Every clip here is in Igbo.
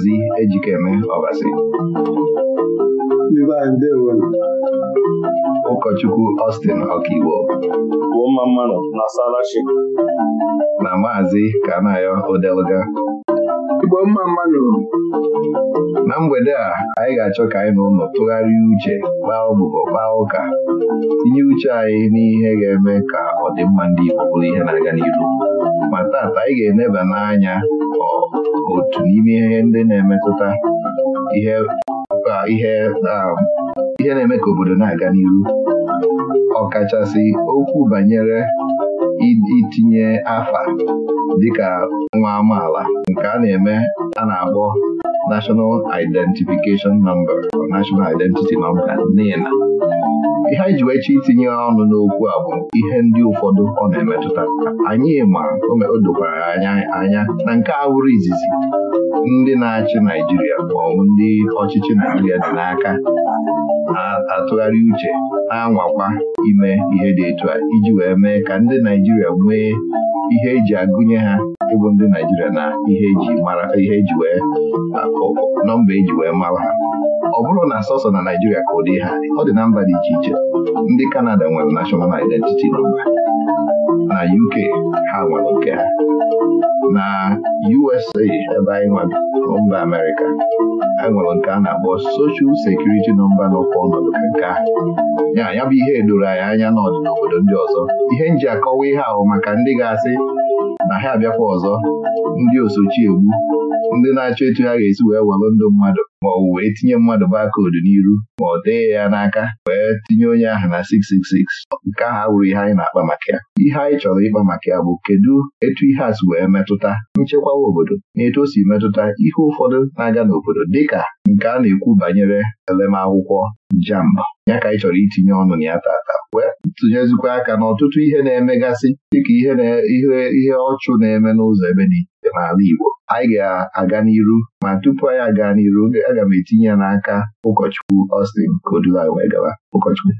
Maazị Ejikeme Ọbasi ụkọchukwu Austin Ọkaiwo na Maazị Kanayo Odeluga na mgbede a anyị ga-achọ ka anyị na ụlọ tụgharịa uche kpaa ọbụbọ kpaa ụka tinye uche anyị n'ihe ga-eme ka ọdịmma ndị Igbo bụrụ ihe na-aga n'ihu ma taata anyị ga-eneba n'anya ọ otu n'ime ihe ndị na-emetụta ihe na-eme ka obodo na-aga n'ihu ọkachasị okwu banyere itinye afa dịka nwa amaala nke a na-eme a na-akpọ National Identification Number National Identity Number NINA ihe anyị ji wee itinye ọnụ n'okwu a bụ ihe ndị ụfọdụ ọ na-emetụta anyị ma o dokwara anya anya na nke awụrụ izizi ndị na-achị Naijiria maọbụ ndị ọchịchị Naijiria dị n'aka atụgharị uche na-anwakwa ime ihe dị etu a iji wee mee ka ndị Naijiria nwee ihe eji agụnye ha ịbụ ndị Naijiria na ihe eji mara ihe eji wee akụ nọmba eji wee mara ha ọ bụrụ na sọsọ na Naijiria ka ụdị ha ọ dị na mba dị iche iche ndị Kanada nwere nashọnal identiti nọmba na UK ha nwere nke ha na USA ebe anyị nwere mba Amerịka ha nwere nke a na-akpọ Social Security nọmba n'ụkwa ọnọdụ nke a ya ya bụ ihe edoro anyị anya n'ọdị obodo ndị ọzọ ihe nji akọwa ihe ahụ maka ndị ga-asị na ha abịakwa ọzọ ndị osochi egbu ndị na-achọ etu ha ga-esi wee welụ ndụ mmadụ ma ọ wee tinye mmadụ bakoodu n'iru ma ọ dee ya n'aka wee tinye onye ahụ na 666 nke ahụ awụrụ ihe anyị na-akpa maka ya ihe anyị chọrọ ịkpa maka ya bụ kedu etu ihe a si wee metụta nchekwawa obodo na etu o si metụta ihe ụfọdụ na-aga n'obodo dịka nke a na-ekwu banyere elemakwụkwọ JAMB ya ka anyị chọrọ itinye ọnụ na ya tata wee tụnyezikwa aka n'ọtụtụ ihe na-emegasị dịka ihe ihe ọchụ na-eme n'ụzọ ebe dị n'ala Igbo anyị ga-aga n'iru ma tupu anyị aga n'iru aga m etinye ya n'aka ụkọchukwu Austin Kodulai wee gaba ụkọchukwu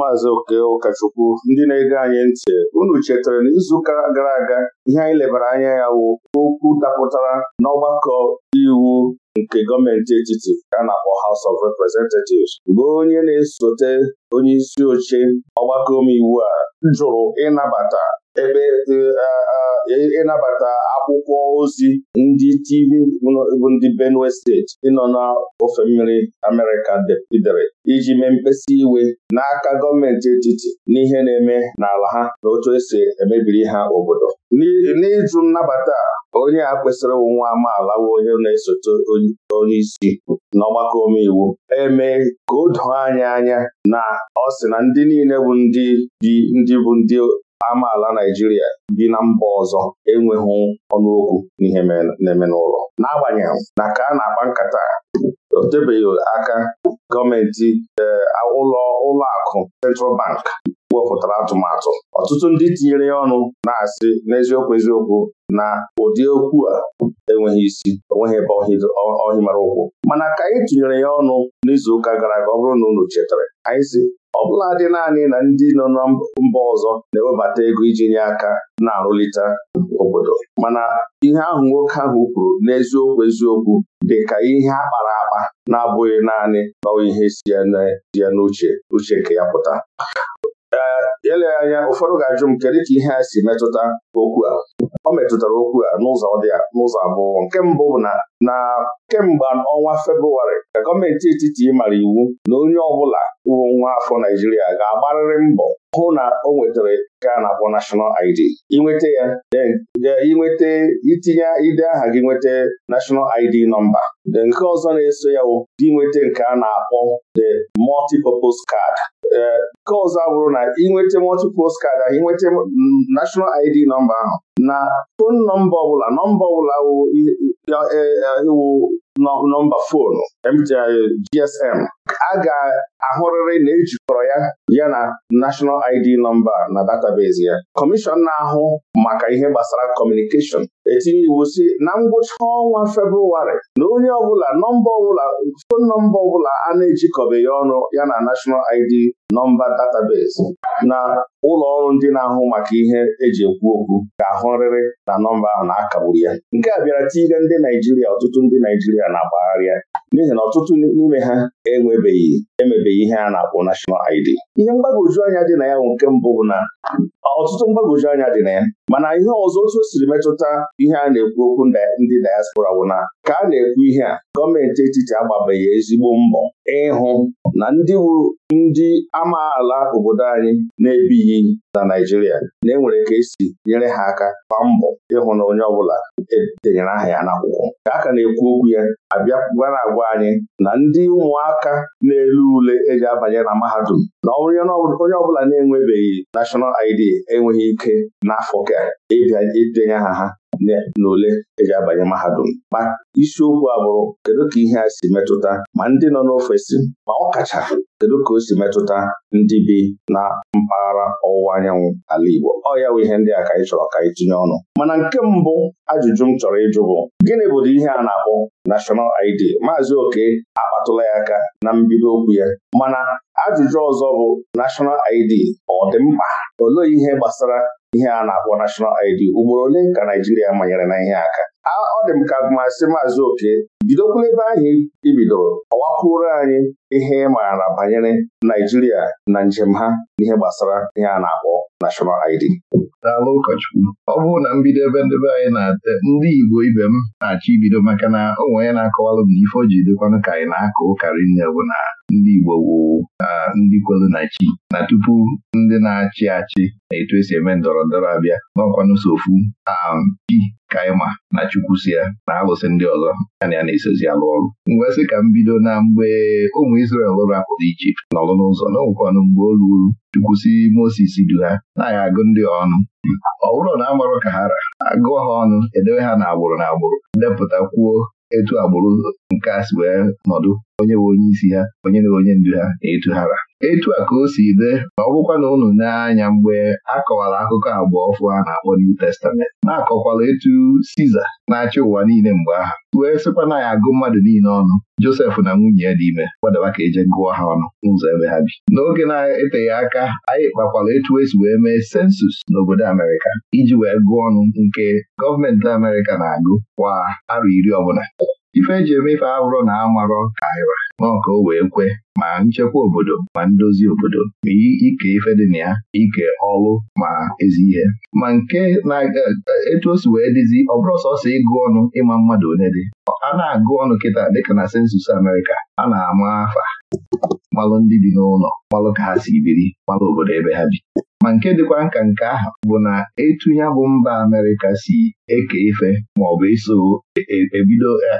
maazị oke ụkọchukwu ndị na-ege anyị ntị unu chetara na izuụka gara aga ihe anyị lebara anya ya wụ okwu dapụtara n'ọgbakọ iwu nke gọọmenti etiti a na-akpọ House of Representatives bụ onye na-esote onye isi oche ọgbakọ omeiwu a jụrụ ịnabata ịnabata akwụkwọ ozi ndị TV bụ ndị Benue steeti ịnọ n'ofe mmiri Amerịka depidere iji mee mkpesa iwe n'aka gọọmenti etiti n'ihe na-eme n'ala ha na otu esi emebiri ha obodo n'ịjụ nnabata onye a kwesịrị nwa amaala bụ onye na-esote onye isi n'ọgbakọ omeiwu eme ka o anya anya na ọ sị na ndị niile bụ ndị bụ ndị amaala Naijiria bi na mba ọzọ enweghị ọnụokwu n'ihe na-eme n'ụlọ n'agbanyeghị na ka a na-akpa nkata o tebeghị aka gọọmenti eh, ụlọ ụlọakụ Central Bank wepụtara atụmatụ ọtụtụ ndị tinyere ya ọnụ na-asị n'eziokwu eziokwu na ụdị okwu a enweghị isi onweghị ebe ọhị mara ụkwụ mana ka anyị tụnyere ya ọnụ n'izuụka gara aga ọ bụrụ na unu chetara anyị si ọ bụla dị naanị na ndị nọ na mba ọzọ na-ewebata ego iji nye aka na-arụlite obodo mana ihe ahụ nwoke ahụ kwuru n'eziokwu eziokwu dị ka ihe a kpara akpa na-abụghị naanị bawa ihe si ya n'uche uche nke ya pụta ele anya ụfọdụ ga-ajụ m kedu ka ihe a si metụta okwu a o metụtara okwu a n'ụzọ dị n'ụzọ abụọ nke mbụ bụ na na kemgbe ọnwa Febrụwarị ka gọọmenti etiti mara iwu na onye ọbụla uwe nwa afọ Naijiria ga-agbarịrị mbọ hụ na o nwetara nke a na-akpọ nashọnal ID inweta ya inweta e, itinye ide aha gị nweta National ID nọmba nke ọzọ na-eso ya dị nweta nke a na-akpọ the multi card e, nke ọzọ bụrụ na ịnweta multi-purpose card ịnweta National ID nọmba ahụ na fon nọmba ọbụla nọmba ọbụla wụ nọmba foonu MTI GSM a ga-ahụrịrị na ejikọrọ ya ya na National ID nọmba na database ya kọmishọn na-ahụ maka ihe gbasara kọmunikeshọn etinye iwu si na ngwụcha ọnwa Febrụwarị na onye ọbụla nọmba ọbụla fon nọmba ọbụla a na-ejikọbeghị ọnụ ya na National ID nọmba database na ụlọ ọrụ ndị na-ahụ maka ihe eji ekwu okwu ga-ahụrịrị na nọmba ahụ na-akagburu ya nke a bịara tinyere ndị Naijiria ọtụtụ ndị Naijiria na-agbagharịa n'ihi na ọtụtụ n'ime ha enwe emebeghị emebeghị ihe a na-akpọ national ID ihe mgbagwoju anya dị na ya nke mbụ bụ na ọtụtụ mgbagwoju anya dị na ya mana ihe ọzọ otu o siri metụta ihe a na-ekwu okwu ndị diaspora bụ na ka a na-ekwu ihe a gọọmenti etiti agbabeghị ezigbo mbọ ịhụ na ndị bụ ndị amaala obodo anyị na-ebighị na Naijiria na-enwere ka esi nyere ha aka kwa mbọ ịhụ na onye ọbụla denyere aha ya n'akwụkwọ ka a ka na-ekwu okwu ya abịa na-agwa anyị na ndị ụmụaka na-elu ule eji abanye na mahadum na onye ọbụla na-enwebeghị nashọnal ID enweghị ike n'afọ ka ịbịa idenye aha ha na ole eji abanye mahadum ma isiokwu a bụrụ kedu ka ihe a si metụta ma ndị nọ n'ofesi ma ọ kacha kedu ka o si metụta ndị bi na mpaghara ọwụwa anyanwụ ala Igbo ọ ya bụ ihe ndị a ka anyị chọrọ ka anyị tinye ọnụ mana nke mbụ ajụjụ m chọrọ ịjụ bụ gịnị bụrụ ihe a na-akpọ nashọnal ID Maazị Oke akpatụla ya aka na mbido okwu ya mana ajụjụ ọzọ bụ nashọnal ID ọ dị mkpa olee ihe gbasara ihe a na-akpọ nashọnal ID ugboro ole ka Naijiria manyere na ihe aka ọ dị m ka masị maazị oke bidokwula ebe ahụ ibidoro ọwakwuru anyị ihe ị maara banyere Naijiria na njem ha n'ihe gbasara ihe a na-akpọ nashọnal ID daalụ ụkọchukwu ọ bụrụ na mbido ebe ndebe anyị na-ate ndị Igbo ibe m na-achọ ibido maka na onwe onye na-akọwalụ m ife o ji ka anyị na-akọ ụkarị nne bụ na ndị Igbo wụ ndị kwelu na chi na tupu ndị na-achị achị na etu esi eme ndọrọ ndọrọ abịa n'ọkwanụ so ofu chi kaima na chukwu si ya na alụsị ndị ọzọ na ya na-esozi alụ ọrụ ngwa sị ka m bido na mgbe ụmụ Izrel rapụrụ Ijipt nọrụ n'ụzọ n'ọnwụkwanụ mgbe o ruru chukwu si Moses du ha na-agha agụ ndị ọnụ ọ bụrụ na amarụ ka ha ra agụọ ha ọnụ edewe ha na agbụrụ na agbụrụ depụta kwuo etu agbụrụ nke a si wee nọdụ onye bụ onye isi ha onye na onye ndu ha na-etu hara etu a ka o si de ma ọ bụkwa na unu n'anya mgbe a kọwara akụkọ abụọ ọfụ a na-akpọ New Testament na-akọkwala etu Siza na-achị ụwa niile mgbe aha wee sịkwa na ya agụ mmadụ niile ọnụ Josef na nwunye ya dị ime gbadaba ka eje gụọ ha ọnụ n'ụzọ ebe ha bi n'oge na-eteghị aka anyị kpakwara etu esi wee mee sensus n'obodo Amerịka iji wee gụọ ọnụ nke gọọmenti Amerịka na-agụ kwa arọ iri ọbụla ife eji eme ife abụrụ na amarọ naira n'ọka o wee kwe ma nchekwa obodo ma ndozi obodo ma ike ife dị na ya ike ọlụ ma ezi ihe ma nke na-etu e, e, osi wee dịzi ọ bụrụ sọsọ ịgụ ọnụ ịma mmadụ onye dị a na-agụ ọnụ kịta dịka na sensus Amerịka a na-ama afa malụ ndị bi n'ụlọ malụ ka ha si biri malụ obodo ebe ha bi ma nke dịkwa nka nke ahụ bụ na etu ya bụ mba Amerịka si eke ife maọbụ iso ebido e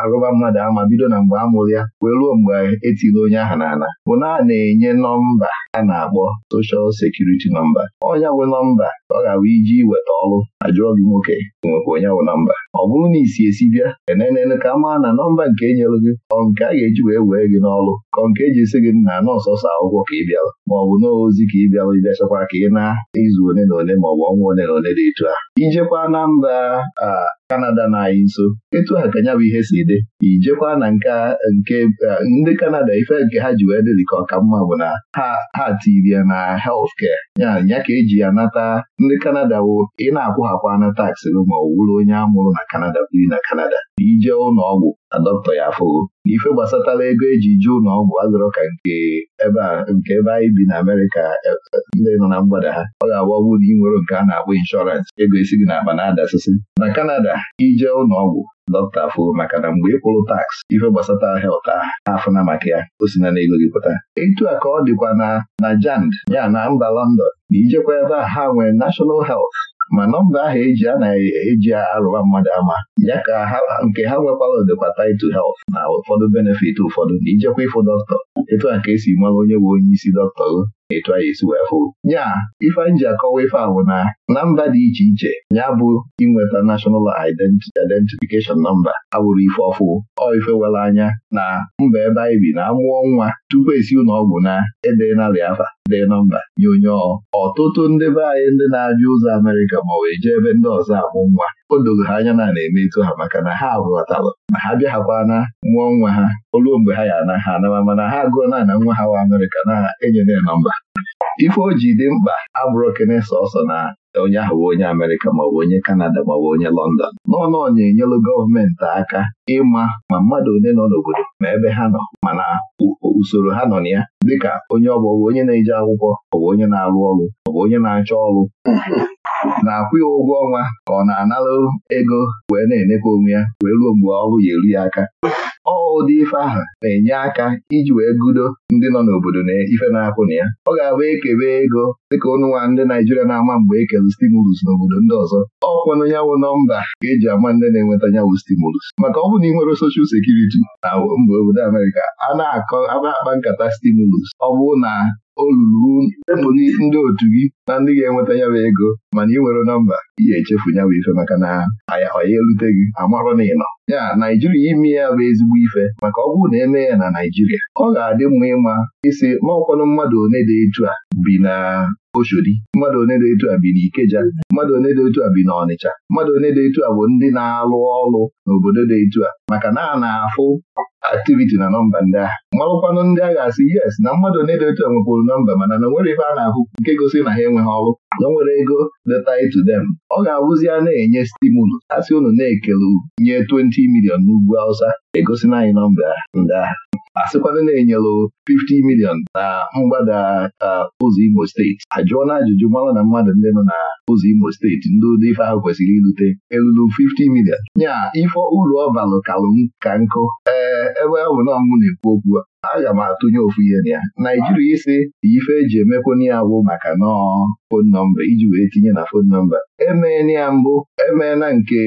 arụba mmadụ ama bido na mgbe amụrụ ya wee ruo mgbe etiri onye aha n'ala bụ na a na-enye nọmba a na-akpọ soshal sekuriti nọmba ọnya nwe nọmba ọ ga-abụ iji weta ọrụ ajụọ gị nwoke nwekwa onye nwe nọmba ọ bụrụ na isi esi bịa enenene ka a maa na nọmba nke e nyere gị ọ nke a ga-eji wee wee gị n'ọrụ ka nke eji esi gị na nọọsọsọ akwụkwọ ka ị bịara maọbụ n'ozi ka ị bịara ịbịachakwa ka ị na-izu one na one maọbụ ọnwa one na one dị etu a ijekwa na mba mba Kanada na anyị nso etu ha ka nya bụ ihe si dị ijekwa na nke ndị Kanada ife nke ha ji wee dịrị ka ọka mma bụ na ha tiri ya na healthcare ya ya ka eji ya nata ndị Kanada bụ ị na-akwụghakwa na taksi ma ọ wụrụ onye amụrụ na Kanada biri na Kanada ije ụlọ ọgwụ adọktọ ya afụgo n'ife gbasatala ego eji ji ụlọ ọgwụ azụrọ ka nke ebe nke ebe anyị bi na Amerịka e, e, ndị nọ na mgbada ha ọ ga-agba ọgwụ na ị nwere nke a na-akpọ inshọrans. ego esi gị na na-adasịsị na Kanada ije ụlọ ọgwụ dọkịta afụ maka na mgbe ịkwụrụ kwụrụ taks ife gbasatara helt aha afụna maka ya o si na n'ego gị pụta etu a ka ọ dịkwa na na jand ya na mba London na ijekwa ebe a ha nwere National Health ma nọmba ahụ eji a na-eji e arụwa mmadụ ama ya ka nke ha nwekwara odekwa taịtụ health na ụfọdụ benefit ụfọdụ na ijekwa ịfụ dọkịta etu a ka esi mara onye bụ onye isi dọkịta etu anyị esi wee fụ ya ife anyị ji akọwa ife a bụ na na mba dị iche iche ya bụ inweta National Identification Number abụrụ ife ọfụ ọ ife were anya na mba ebe anyị bi na amụọ nwa tupu esi ụlọ ọgwụ na ede narị afa dee nọmba nye onye ọtụtụ ndị be anyị ndị na-abịa ụzọ Amerịka ma wee jee ebe ndị ọzọ amụ nwa o doro ha anya na a eme etu ha maka na ha ghọtara ma ha na mụọ nwa ha oluo mgbe ha ya ana ha anama mana ha agụọ na na nwa ha wa Amerịka na enyere ya nọmba ife o ji dị mkpa abụrụ sọsọ na onye ahụ onye Amerịka maọbụ onye Kanada maọbụ onye lọndọn n'ọnọ na-enyelụ gọọmenti aka ịma ma mmadụ ole nọ n'obodo ma ebe ha nọ mana usoro ha nọ na ya dịka onye ọ bụ onye na-eje akwụkwọ ọ bụ onye na-arụ ọrụ ọ bụ onye na-achọ ọrụ na-akwụ ya ụgwọ ọnwa ka ọ na analụ ego wee na-enekwa onwe ya wee ruo mgbe ọrụ ya eru ya aka ọ ụdị ife aha na-enye aka iji wee gudo ndị nọ n'obodo na ife na-akwụ na ya ọ ga-abụ ekebe ego dịka ọnụnwa ndị Naijiria na-ama mgbe ekele stimulus n'obodo ndị ọzọ ọ kwanụ yawụ nọmba ka eji ama ndị na-enweta yawụ stimulus maka ọ bụ na ị nwere soshal sekuriti na mgbe obodo Amerịka a na-akụ akpa nkata stimulus ọ bụrụ na o ruru ndị otu gị na ndị ga-enweta ya bụ ego mana ị nwere nọmba ị echefu ya bụ ife maka na aya ọya elute gị amarụ na ịnọ ya Naijiria ime ya bụ ezigbo ife maka ọ bụrụ na eme ya na Naijiria ọ ga-adị mma ịma isi maọkwanụ mmadụ one dị etu a bi na Oshodi mmadụ one dị etu a bi na Ikeja mmadụ one dị etu a bi na Ọnịcha mmadụ one dị etu a bụ ndị na-alụ ọrụ n'obodo dị etu a maka na a na-afụ aktiviti na nọmba ndị agha malụkwanụ ndị agha asị yes na mmadụ na-edote nwekwuru nọmba mana na nwere ife a na-ahụ nke gosi na ha enweghị ọrụ na o nwere ego leta to them ọ ga-abụzi a na-enye stimulus asị unu na-ekele nye 20 milion n'ugwu Hausa egosina anyị nọmba ndị a. sịkwana na-enyelụ 50 milion na mgbada ụzọ Imo steeti ajụọla ajụjụ mara na mmadụ ndị nọ na ụzọ Imo steeti ndị ụdị ife ahụ kwesịrị irute elulu 50 milion nya ife uru ọ balụ kalụ ka nkụ ee ebe ọ bụ na na-ekwu okwu aga m atụnye ofu ihe na ya Naijiria isi ife eji emekwun ya bụ maka nọọ fon nọmba iji wee tinye na fon nọmba emeela ya mbụ emeela nke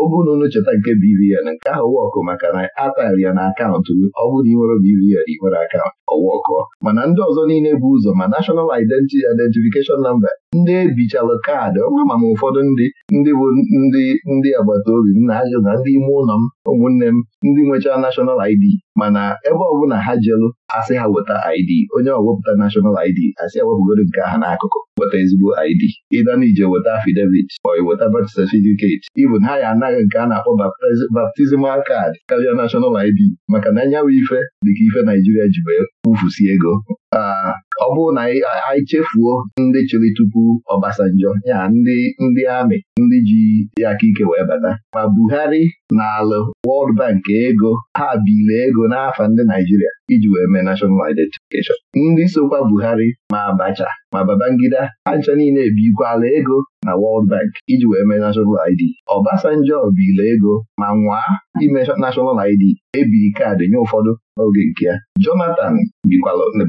obununu cheta nke BVN nke ahụ wọkụ maka na atari ya na akaụntụ ọ bụrụ na ị nwere BVN ị nwere akaụntụ ọwọkụ mana ndị ọzọ niile bụ ụzọ ma nashọnal Identity Identification Number ndị ebichalụ kaadị ọnwa ma ụfọdụ ndị ndị bụ ndị ndị agbata obi m na-ajụ na ndị ime ụlọ m ụmụnne m ndị nwechaa nashọnal ID mana ebe ọbụla ha jelụ asị ha weta ID onye ọwepụta nashọnal ID asị wepụgoro nke aha n'akụkụ weta ezigbo ID ịga weta afidevit ma weta bat satifiketi ibụ na ha ya anaghị nke a na-akpọ baptizimal kaadị karịa nashọnal ID maka na anyanwụ ife dịka ife Naijiria ji wee kwufusi ego ọ bụrụ na anyị chefuo ndị chịrị tupu Ọbasanjọ ya ndị ndị amị ndị ji ya aka ike wee bata ma Buhari na alụ World Bank ego ha bile ego n'afọ ndị Naijiria iji wee mee National Identification ndị sokwa Buhari ma Abacha ma Babangida ha niile ebikwala ego na World Bank iji wee mee National ID Obasanjo bila ego ma nwaa ime National ID ebiri kaadị nye ụfọdụ n'oge nke ya Jonathan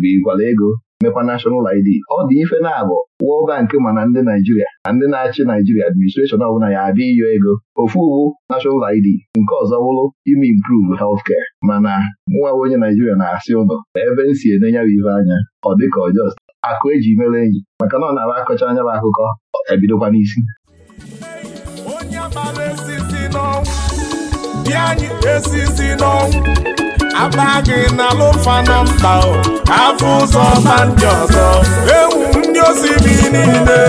bikwala ego mekwa nashọnal ID ọ dị ife na-abụ World Bank mana ndị Naijiria na ndị na-achị Naijiria administreshọn ọbụla ya abịa iyo ego ofu uwu nashọnal ID nke ọzọ bụrụ ime improve healthcare mana nwa onye Naijiria na-asị ụlọ na ebe m si enye ya ife anya ọ dịka ọjọọ akụ eji mere enyi maka na ọ na-aba akọcha anya bụ akụkọ ebidokwa n'isi onye mara n'ọnwụ aba gị n'alụfa na mba afọ ụzọ ma ndị ọzọ ewu ndị osimiri niile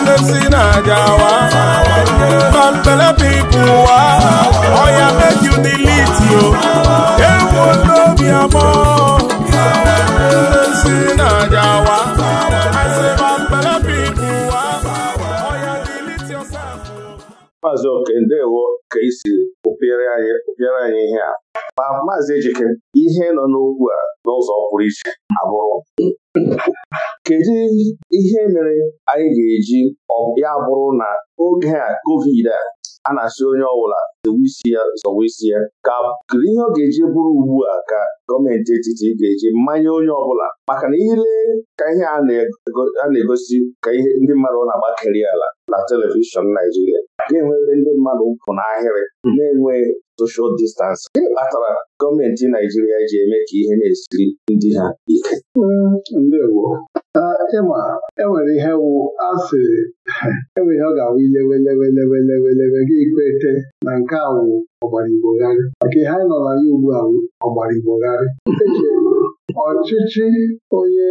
Ndị si na-aja wa pampelepipu wa ọya meju dilitio ewu n'obi amọ Ndị si Maazị Oke, ka isi ụpịara anyị ihe ma maazị Ejike ihe nọ n'okwu a n'ụzọ pụrụ iche abụrụ kedu ihe mere anyị ga-eji ya bụrụ na oge a covid a a na-asị onye ọbụla zowe isi ya zọwa isi ya ka kedu ihe ọ ga-eji bụrụ ugbu a ka gọọmenti etiti ga-eji mmanya onye ọbụla maka na ile ka ihe a na-egosi ka ihe ndị mmadụ na-agbakeri ala na telivishọn Naijiria ga-enwere ndị mmadụ na n'ahịrị na-enwe soshal distansị gịnị kpatara gọọmenti Naijiria ji eme ka ihe na-esiri ndị ha ike mm, ndewo ịma enwere ihe wụ asị enwere ihe ọ ga-awụ gị kwete na nke a ọgbara igbogharị maka ihe anyị nọ ya ugbu a ọgbara igbogharị ọchịchị onye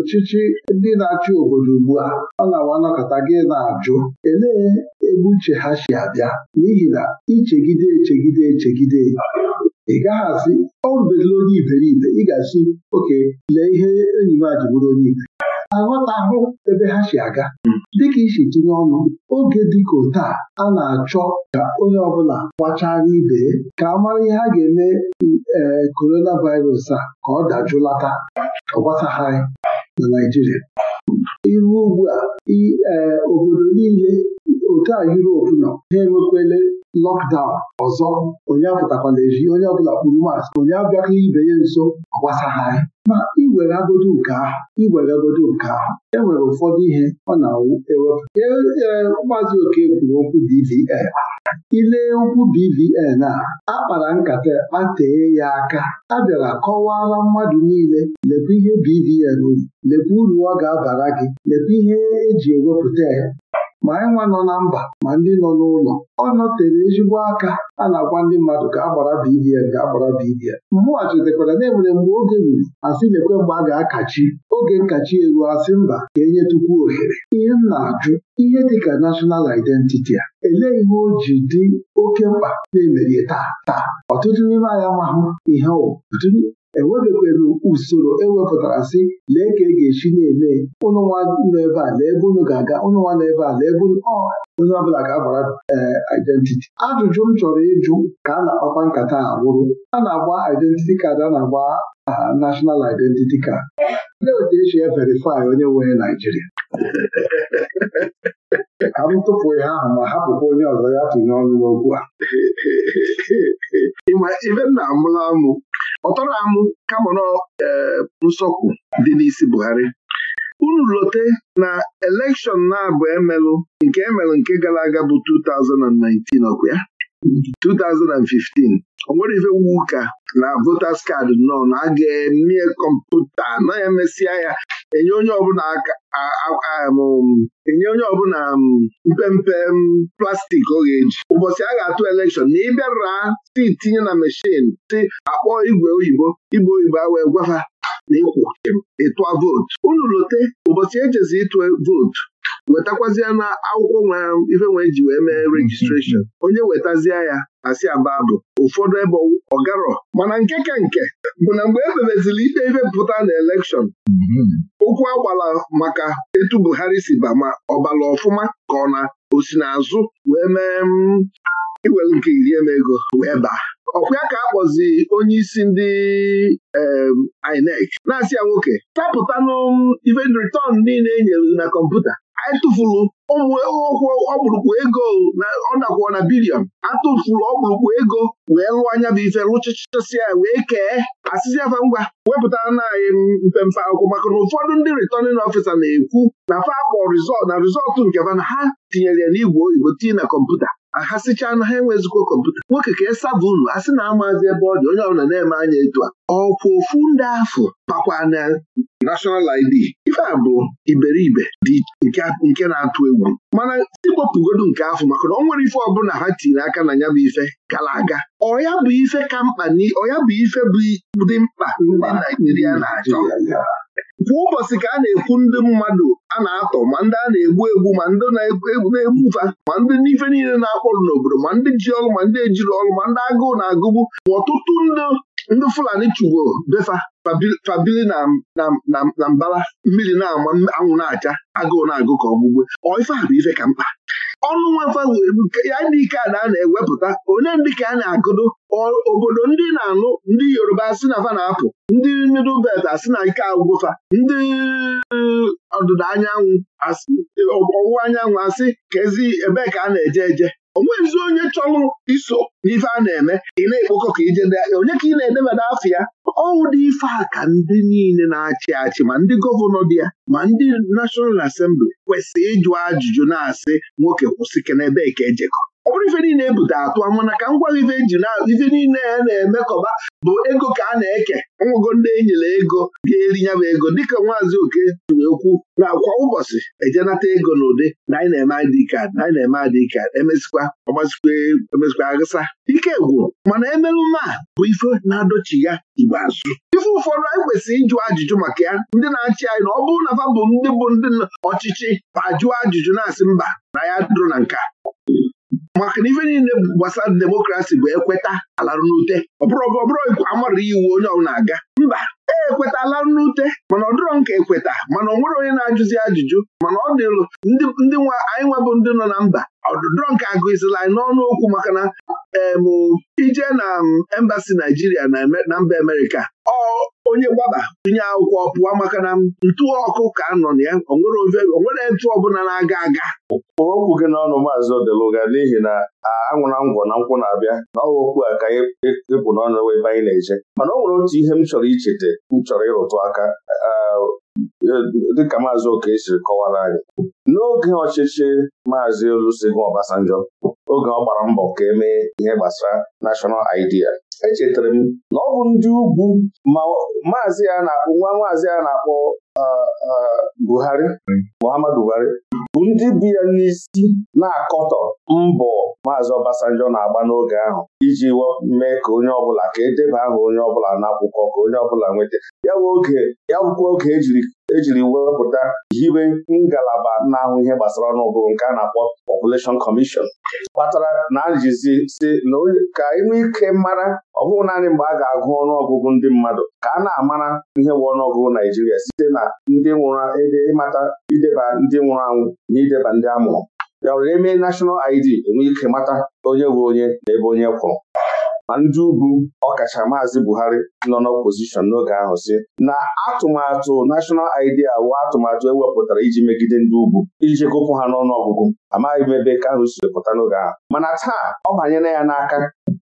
ọchịchị e, ndị na-achị obodo ugbu a a na-awa anakọta gị na-ajụ elee ebe uche ha si abịa n'ihi na ichegide echegide echegide ị gaghị asị ọ rubelụla onye iberibe ị ga-asị oke lee ihe enyi m a ji bụrụ onye ibe aghọtahụ ebe ha si aga hmm. dịka isi tinye ọnụ oge dịka ote a a na-achọ ka onye ọbụla gbachara ibe ka a mara ihe a ga-eme ee eh, korona a ka ọ dajụlata ọgbasagharị na Naijiria iru ugbu a ee eh, obodo niile otu a Yurop nọ ha enwekwele lọkdaụn ọzọ onye apụtakwala eji onye ọbụla kpuru mas onye abịaka ibe ya nso ọgbasa ha ma iwere agodo nke ahụ iwere agodo nke ahụ enwere ụfọdụ ihe ọ na-awụ ewepụ ee Maazị Oke kwuru okwu BVN ilee okwu BVN a akpara nkata kpatee ya aka a bịara kọwaala mmadụ niile lekwa ihe BVN lekwa uru ọ ga-abara gị lekwa ihe eji ewepụta ya ma anyị nwa nọ na mba ma ndị nọ n'ụlọ ọ nọtere ezigbo aka a na-agwa ndị mmadụ ka agbara BBN ka agbara BBN mmụọ chetakwara na enwere mgbe oge ruru asị lekwe mgbe a ga-akachi oge nkachi eru asị mba ka enye tupu ohere ihe m na-ajụ ihe dịka nashọnal identiti a elee ihe o ji dị oke mkpa na-emerie taa taa ọtụtụ n'ime anyị amahụ ihe ọtụtụ enwebekwere usoro ewepụtara sị lee ka e ga-esi na-eme ụnụnwa nọ ebe a lee ebe unu ga-aga ụnụnwa nọ ebe a lee ebe onye ọbụla ga-agbara eh, identity ajụjụ m chọrọ ịjụ ka a na-akpakwa nkata a a na-agba identity kad a na-agba aha national identity card ndị otu esi e, e verifai onye nwere Naijiria ka m tụpụ ya ahụ ma hapụkwa onye ọzọ ya tụnye ọnụ n'okwu a ịma ibe nna amụla amụ ọtọrọ amụ kama na nsọkwu dị n'isi Buhari unu lote na elekshọn na-abụ emelụ nke emelụ nke gara aga bụ 2019 ọkụ ya 2015 o nwere ife wu ụka na votas kaadị nọ na aga kọmputa na emesịa ya enye onye ọbụla um, enye onye ọbụla um, mpempe um, plastik ọ ga-eji ụbọchị a ga-atụ elekshọn na ịbịara si tinye na meshin si akpọ igwe oyibo igbe oyibo a wee gwafa na ịkwụ vootu unu lote ụbọchị ejezi ịtụ vootu wetakwazie na akwụkwọ nwere ife nwee ji wee mee mm-hmm. rejistreshọn onye wetazie ya asị ababụ ụfọdụ ebe ọgarọ mana nke ka nke bụ na mgbe ebebezili ikpe ife pụta na elekshọn ụkwụ mm-hmm. agbala maka etu Buhari si ba ma ọ ọfụma ka ọ na osi wee mee mm, iwel nke iri eme wee baa ọkwa ka a kpọzi onye isi ndị INEC na-asị ya nwoke tapụtanụ mm, ife niile e nyere na kọmputa atụfuru ụmụ ụkwụ ọkpụrụkpụ ego na ọ na bilion atụfuru ọkpụrụkpụ ego wee lụọ anya bụ ife rụchachasịa wee kee asịsị afa ngwa wepụtara na anyị mpempe akwụkwọ maka na ụfọdụ ndị returning ọfisa na-ekwu na fa akpọ rizọt na rizọtụ nke mana na ha tinyere ya n'igwe oyibo tinye na kọmputa ha sichaa na ha enwezikwa kọmputa nwoke ka esaba unu a sị na amazi ebe ọ dị onye ọbụla na-eme anya etu a ọkwụ ofu ndị afọ bakwa na nashọnal ID ife a bụ iberibe dị nke na-atụ egwu mana iwepụgodu nke afọ maka na ọ nwere ife ọbụla ha tiri aka na ya bụ ife gara aga ọya bụ ife ka mkpa ọya bụ ife bụ dị mkpa ndị Naijiria na-achọ kwa ụbọchị ka a na-ekwu ndị mmadụ a na-atọ ma ndị a na-egbu egbu ma ndị na-egbufa ma ndị n'ife niile na-akpọrọ n'obodo ma ndị ji ọrụ ma ndị ejiri ọrụ ma ndị agụụ na-agụgbu ma ọtụtụ ndị ndị Fulani chugbo befa fabili na mbala mmiri na-ama anwụ na-acha agụụ na-agụ ka ọgbụgbe ọ ife a bụ ife ka mkpa ọnụ nwefa ya ndị ike a na-ewepụta onye ndị ka a na-agụdụ obodo ndị na-anụ ndị Yoruba asị na fa na-apụ ndị middle belt asị na ike agwụfa ndị ọdịda anyanwụ ọwụwa anyanwụ asị kezi ebee ka a na-eje eje onweghịzi onye chọrọ iso n'ife a na-eme ị na-ekpokọ ka ije ndị ahịa onye ka ị na edemede afọ ya ọwụ dị ife a ka ndị niile na-achị achị ma ndị gọvanọ dị ya ma ndị National Assembly kwesịrị ịjụ ajụjụ na-asị nwoke kwụsị kenebe ka ejekọ ọ bụrụ ife niile ebute atụ mana ka m gwaghị ife e na ife niile a na kọba bụ ego ka a na-eke ọnwụgo ndị enyere ego ga-eri nyabụ ego dịka nwaazị oke tuwe okwu na kwa ụbọchị ejenata ego n'ụdị na anyị na-eme adịkad na anyị na-eme adịkad emesikwa ọgbasikwa emesikwa agasa ike gwụrụ mana a bụ ife na-adochi ya igbe azụ ife ụfọdụ anyị kwesịrị ịjụ ajụjụ maka ya ndị na-achị anyị na ọ bụrụ na fa bụ ndị bụ ndị ọchịchị ajụọ ajụjụ na-asị mba na ya dụrụ na nka maka na ife niile gbasara demokrasi bụ ekweta alarụ n'ute ọ bụrụ ọbụrụ amara iwu onye na aga mba ekwetala nnute mana ọ nke ekweta mana ọ nwere onye na-ajụzi ajụjụ mana ọ dịlụ ndị nwa anyị nwebụ ndị nọ na mba ọdụdụrọ nke agụzila anyị n'ọnụ okwu maka na ije na embasi Naijiria na mba Amerika. ọ onye gbaba tụnye akwụkwọ pụọ maka na ntụ ọkụ ka nọ na ya onwere ntụ ọbụla na-aga aga Kpụrụ okwu gị n'ọnụ maazị Odeluga n'ihi na anwụna ngwọ na nkwụ na-abịa na ọwa okwu a ka ịpụ e, e, e n'ọnụ ebe anyị na-eje mana ọ nwere otu ihe m chọrọ ichete m chọrọ ịrụtụ aka dịka maazị oke siri kọwara anyị n'oge ọchịchị maazị Olusegun Obasanjo, oge ọ gbara mbọ ka e mee ihe gbasara National Idea echetara m na ọ bụ ndị ugwu ma maazị a na-akpọ nwa maazị a na-akpọ Buhari Muhammadu Buhari ndị bụ ya n'isi na-akọtọ mbọ maazị Obasanjo na-agba n'oge ahụ iji mee ka onye ọbụla ka edeba aha onye ọbụla n'akwụkwọ ka onye ọbụla nweta ya bụ ya bụkwa oge ejiri ejiri wepụta hiwe ngalaba na-ahụ ihe gbasara ọnụọgụ nke a na-akpọ Population Commission kpatara na ajizi si na ka inwe ike mara ọ bụghị naanị mgbe a ga-agụ ọnụọgụgụ ndị mmadụ ka a na-amara ihe bụ ọnụọgụgụ Naijiria site na ndị nwụrụ ịmata ideba ndị nwụrụ anwụ na ideba ndị amụrụ ya were eme nashọnal ID enwe ike mata onye bụ onye na ebe onye kwụrụ ma ndị ugwu ọkacha maazị Buhari nọ n'opozishọn n'oge ahụ si na atụmatụ National Idea wụ atụmatụ ewepụtara iji megide ndị ugwu iji chekopụ ha n'ọnụ ọgụgụ amaghị m ebe ahụ si pụta n'oge ahụ mana taa ọ banyela ya n'aka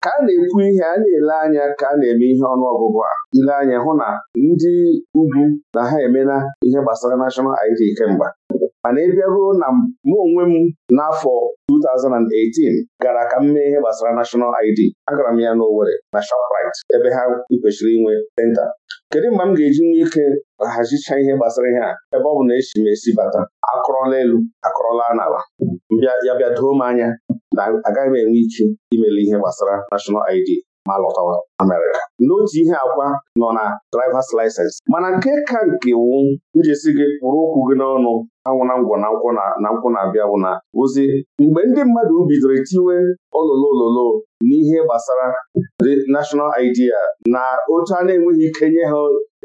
ka a na-ekwu ihe a na-ele anya ka a na-eme ihe ọnụọgụgụ a ile anya hụ na ndị ugwu na ha emela ihe gbasara National ID kemgbe mana ị bịaruo na mụ onwe m n'afọ 2018 gara ka m mee ihe gbasara National ID agara m ya n'Owerri na shoprit ebe ha kwesịrị inwe senta kedu mgbe m ga-eji nwee ike hazicha ihe gbasara ihe a ebe ọ bụ na esi m esi bata akụrọla elu akụrọla n'ala ya bịa doo m anya na agaghị m enwe ike imele ihe gbasara National ID ma lọtawa mere n'otu ihe akwa nọ na drivers license mana nke ka nke wu njesi gị pụrụ okwu gị n'ọnụ anwụna ngwọ na nkwụ na nkwụ na-abịa bụ na ozi mgbe ndị mmadụ bidoro tiwe ololo ololo n'ihe gbasara the national idea na otu a na-enweghị ike nye ha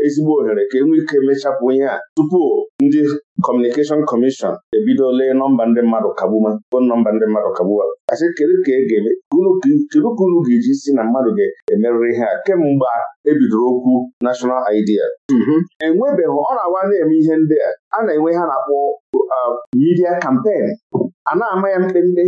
ezigbo ohere ka e nwee ike mechapụ ihe a tupu ndị Kọmunikeshọn Kọmishọn ebido lee nọmba ndị mmadụ kagbuma bụ nọmba ndị mmadụ kagbuma asị kedu e ka kedu ka unu ga-eji si na mmadụ ga-emerịrị ihe a kemgbe ebidoro okwu nashọnal idea mhm. enwebeghị ọ na-awa na-eme ihe ndị a a na-enwe ha na-akpọ uh, midia kampen a na-ama ya mkpemkpe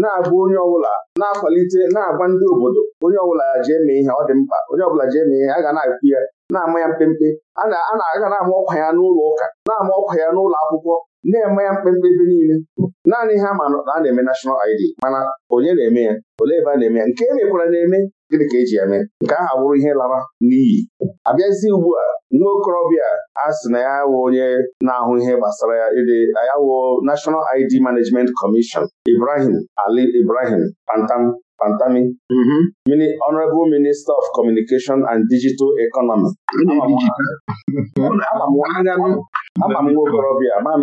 na abụ onye ọbụla na-akwalite na-agwa ndị obodo onye ọbụla jee mee ihe ọ dị mkpa onye ọbụla jee mee ihe a ga na-akwu ya na-ama ya mkpemkpe a na-aga na-ama ọkwa ya n'ụlọ ụka na-ama ọkwa ya n'ụlọ akwụkwọ na-eme ya mkpemkpe ebe niile naanị ha ma na a na-eme nashọnal ID mana onye na-eme ya ole ebe a na-eme ya nke e mekwara na-eme gịnị ka eji ya mee nke ahụ abụrụ ihe lara n'iyi Abịazi ugbu a nwa okorobịa a sị na ya wụ onye na-ahụ ihe gbasara ya ịdị ya wụ National ID Management Commission Ibrahim Ali Ibrahim Pantam Pantami Honorable Minister of Communication and Digital Economy ama m nwa okorobịa ama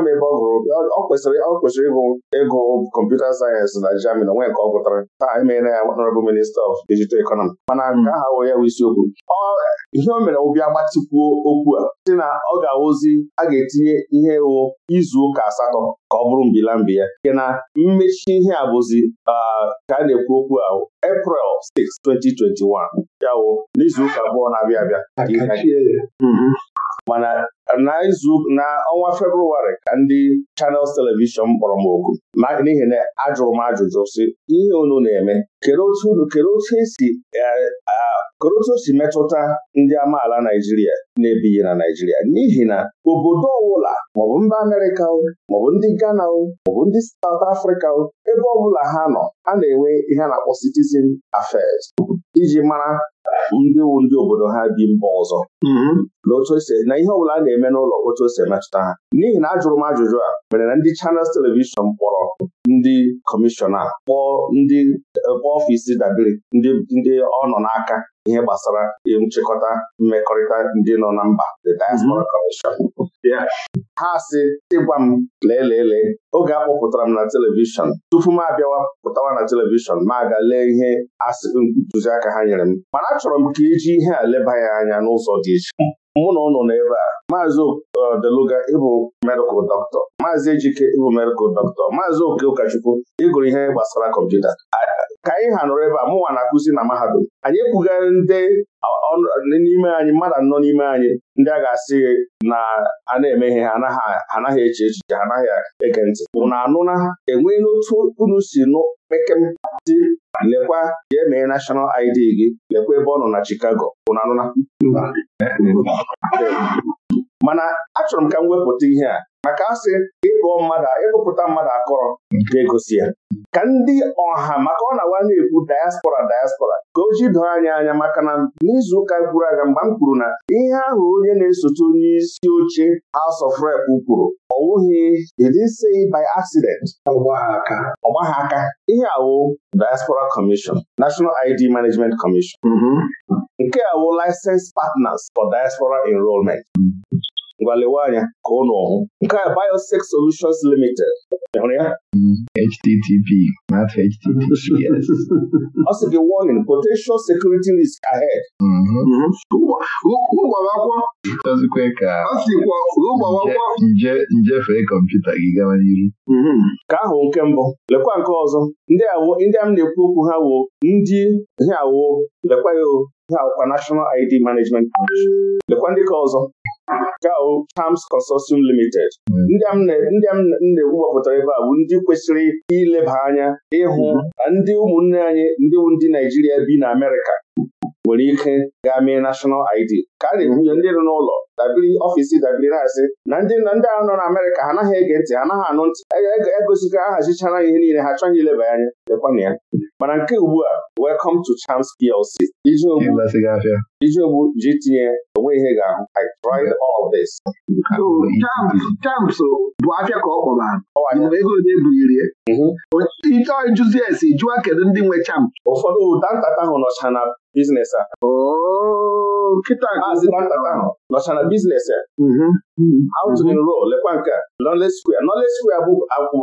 m ebe ọ gụrụ ọ kwesịrị ọ kwesịrị ịgụ ịgụ kọmputa sayensị na Germany onwe nke ọ gụtara taa emeela ya honorable minista of dijital economy mana nke hmm. aha wụ ya bụ isiokwu ihe o mere ụbịa gbatịkwuo okwu a si na ọ ga-awụzi a ga-etinye ihe ewu izu ụka asatọ ka ọ bụrụ mbila mbi ya nke na mmechi ihe a bụzi ka a na-ekwu okwu ahụ April 6, 2021 ya wụ n'izu ụka abụọ na-abịa abịa hmm. mana na izu na ọnwa Febrụwarị ka ndị Channels telivishọn kpọrọ m oku n'ihi na ajụrụ m ajụjụ sị ihe unu na-eme kedu otu esi kedu otu e e, e si metụta ndị amaala Naijiria na-ebighị na Naijiria n'ihi na obodo ọbụla maọbụ mba Amerịka o maọbụ ndị Ghana o maọbụ ndị saut Afrịka o ebe ọbụla ha nọ a na-enwe ihe na-akpọ citizen affairs iji mara ndị wu ndị obodo ha bi mba ọzọ mm-hmm. na otu esi na ihe ọbụla a na-eme n'ụlọ otu o si emetụta ha n'ihi na ajụrụ m ajụjụ a mere na ndị Channels telivishọn kpọrọ ndị kọmishọna kpọọ ndị ọfịs dabere ndị ọ nọ n'aka ihe gbasara nchịkọta mmekọrịta ndị nọ na mba the diaspora commission mm-hmm. ha si ịgwa m lelele, oge a kpọpụtara m na telivishọn tupu m abịawa pụtawa na telivishọn ma aga lee ihe asị ntụziaka ha nyere m mana achọrọ m ka iji ihe a leba ya anya n'ụzọ dị iche mụ na ụnụ ebe a maazị uh, Deluga ịbụ medikal dọkịta maazị Ejike ịbụ medịkal dọkịta maazị Oke Ụkọchukwu ịgụrụ ihe gbasara kọmputa ka anyị ha nọrọ ebe a mụnwa na-akụzi na mahadum anyị ekwugharị ndị n'ime anyị mmadụ anọ n'ime anyị ndị a ga-asị na a na-eme ha anaghị eche echiche ha anaghị ege ntị na anụ na e n'otu unu si nụ pekedị lekwa jee mee nashọnal ID gị lekwa ebe ọ nọ na Chicago ụ anụ na mana achọrọ m ka m wepụta ihe a maka asị ịkpọọ mmadụ ịkpụpụta mmadụ akọrọ ga-egosi ya ka ndị ọha maka ọ na-awa na-ekwu diaspora diaspora ka o ji doo anya anya maka na n'izu ụka gwuru aga mgbe m kwuru na ihe ahụ onye na-esote onye isi oche House of Rep kwuru ọ wụghị edise by accident ọgbaghị aka ihe awụ Diaspora Commission National ID Management Commission mm-hmm. nke awụ Licensed Partners for Diaspora Enrollment ngwa lewe anya ka ụnụ ọhụụ. nke a Biosex Solutions Limited hụrụ ya mm, http ọ sị gị warning potential security risk ahead mm-hmm. Mm-hmm. njefee kọmputa gị gawa n'ihu mm-hmm. ka ahụ nke mbụ lekwa nke ọzọ ndị a m na-ekwu okwu ha wo ndị ha wo lekwa ya o ha awụkwa National ID Management Commission lekwa ndị ka ọzọ Gao Charms Consortium Limited ndị m na ewu gbapụtara ebe a bụ ndị kwesịrị ileba anya ịhụ ndị ụmụnne anyị ndị ndị Naijiria bi na Amerịka nwere ike gaa mee National ID ka a na-ekwunye ndị nọ n'ụlọ dabiri ọfisi dabiri na na ndị ndị ahụ nọ na Amerịka ha anaghị ege ntị ha anaghị anụ ntị egosiga ahazichara ihe niile ha achọghị ileba anya lekwana ya mana nke ugbu a welcome to Chance PLC iji ogbu ji tinye onwe ihe ga-ahụ I tried all of this. Champs bụ afịa ka ọ kpọrọ ego ole bulirie ite jụzi esi jụọ kedu ndị nwe champs ụfọdụ ụda ntata ahụ nọcha na biznes a oh, nkịta nọchara biznes a. Mm-hmm. outrin ro lekwa nka nọle skwia nọle skwia bụ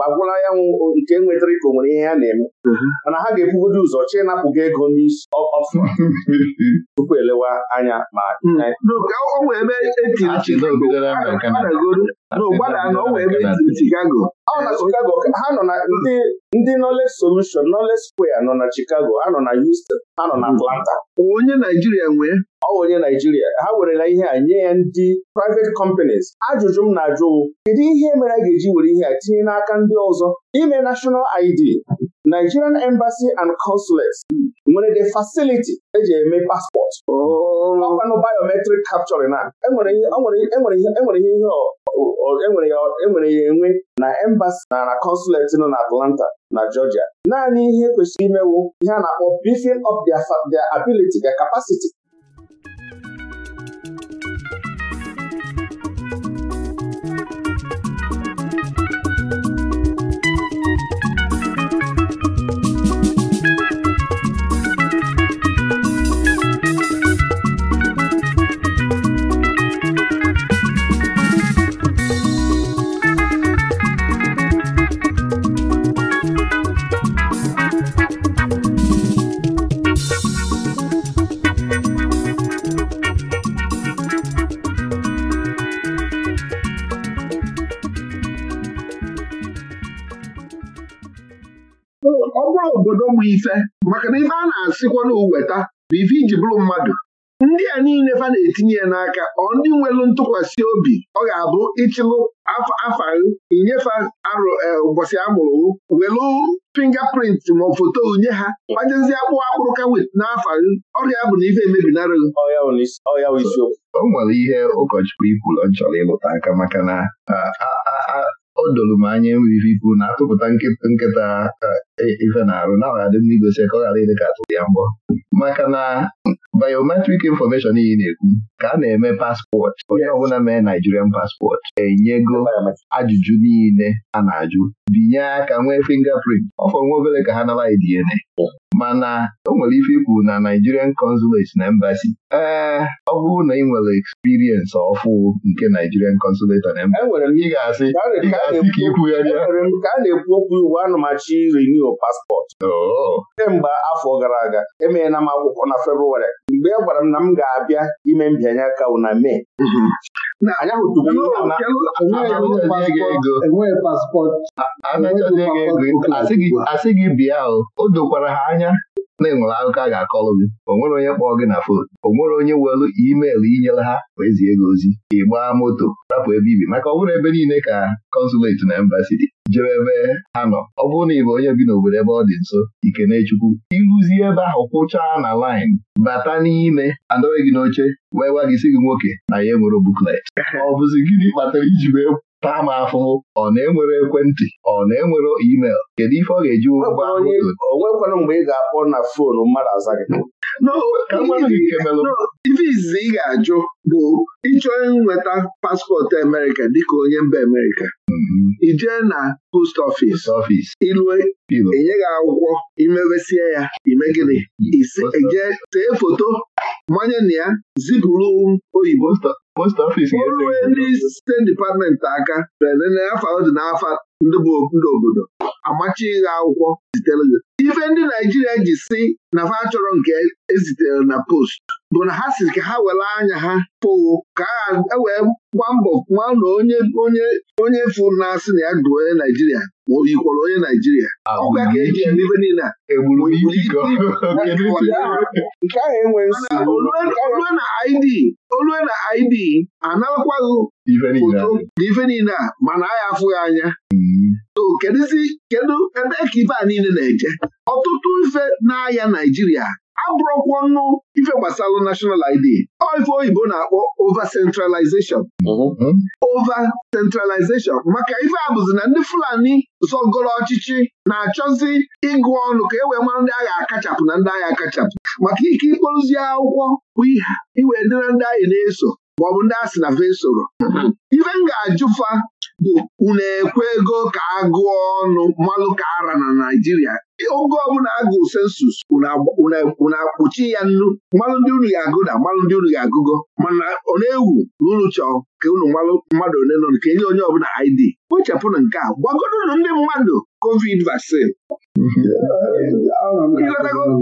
agwụla ya nwụ nke nwetara ka o nwere ihe ya na-eme mm-hmm. mana ha ga-ekwugodo ụzọ chi napụ gị ego n'isi ọfụ tupu elewa anya ma mm. n'ụgbada oh, na ọ wee ebe Chicago ha nọ na ndị ndị knowledge solution knowledge square nọ na Chicago ha nọ na Houston ha nọ na mm. Atlanta onye Naijiria nwee ọ onye Naijiria ha werela ihe a nye ya ndị privet companies ajụjụ m na-ajụ kedu ihe mere a ga-eji were ihe a tinye n'aka ndị ọzọ ime national ID Nigerian Embassy and Consulates nwere the facility eji eme paspọtụ ọkwanụ biometric capture na enwere ya enwe na embassy na na consulate nọ na Atlanta na Georgia naanị ihe kwesịrị imewu ihe a na-akpọ beefing of their ability their capacity elu ntụkwasị obi ọ ga-abụ ịchịlụ afa inyefe arụ eh, ụbọchị amụrụ welụ welu prịnt ma foto nye ha gbajezie akpụ akpụrụ ka wit n'afa ọrịa bụ na ife emebinara o nwere ihe ụkọchukwu ọ chọrọ ịlụta aka maka na o doro m anya enweghị ikwu na-atụpụta nkịta ife na-arụ na ọ ga-adị mma igosi ka ọ ghara ịdị ka atụrụ ya mbọ maka na biometric information iyi na-ekwu ka a na-eme paspọtụ onye ọbụla mee naijirian paspọtụ enyego ajụjụ niile a na-ajụ binye aka nwee fingerprint ọfọ nwa obere ka ha nara DNA mana o nwere ife ikwu na Nigerian consulate na embassy ee ọ bụrụ na ị nwere experience ọfụ nke Nigerian consulate na embassy ị ga-asị ka ị kwugharịa paspọtụ kemgbe afọ gara aga emeghela m akwụkwọ na Febrụwarị mgbe a e gwara m na m ga-abịa ime mbịanye aka na Mee enweghị asị gị bịa o dokwara ha anya na-enwere akụkọ a ga-akọlụ gị onwere nwere onye kpọọ gị na fon o nwere onye welu imeelụ inyere ha wee zie gị ozi ịgbaa moto rapụ ebe ibi maka ọ bụrụ ebe niile ka kọnsuleti na embasi dị jere ebe ha nọ ọ bụrụ na ị bụ onye bi n'obodo ebe ọ dị nso ikenechukwu ịrụzie ebe ahụ kwụchaa na laịn bata n'ime adọghị gị n'oche wee gwa gị si gị nwoke na ya enwere buklet ọ bụzi gịnị kpatara iji wee taa m afọ, ọ na-enwere ekwentị ọ na-enwere email kedu ife ọ ga-eji ụgbọ onwekwara mgbe ị ga-akpọ na foonu mmadụ aza n'o izizi ị ga-ajụ bụ ịchọ nweta paspọtụ Amerịka dịka onye mba Amerịka ijee mhm. na post office ilue enye gị akwụkwọ imewesie ya ime gịnị ije tee foto manye na ya zipụrụ oyibo rue ndị steeti dipatmenti aka afọ dị n'afọ ndị obodo amachi ịgha akwụkwọ zitere gị ife ndị Naijiria ji si na fa chọrọ nke ezitere na post bụ na ha si ka ha were anya ha pụwo ka ha ewee gwa mbọ nwa na onye onye onye fụ na-asị na ya dụ onye Naijiria ma o yikwara onye Naijiria ọkwa ka eji eme ife niile olue na ID olue na ID analakwaghị ife niile a mana agha afụghị anya na kedụzi kedu ebee ka ife a niile na-eje ọtụtụ ife n'ahịa Naijiria abụrụkwa nnu ife gbasara national ID ọ ife oyibo na-akpọ over centralization centralization maka ife a bụzi na ndị Fulani zọgoro ọchịchị na-achọzi ịgụ ọnụ ka e wee mara ndị agha akachapụ na ndị agha akachapụ maka ike ịkpọrụzi akwụkwọ bụ iwe dịra ndị agha na-eso maọbụ ndị a sị na vesoro ife m ga-ajụfa bụ unu ekwe ego ka agụọ ọnụ mmalụ ka ara na Naịjirịa oge ọbụla agụụ sensus e, unu akpụchi ya nnu mmalụ ndị unu ga-agụ na mmanụ ndị unu ga-agụgo mana ọ na-ewu na unu chọọ ka unu mmadụ ole nọ nke onye ọbụla ID kpochapụrụ nke a gwagodonu ndị mmadụ covid vaccine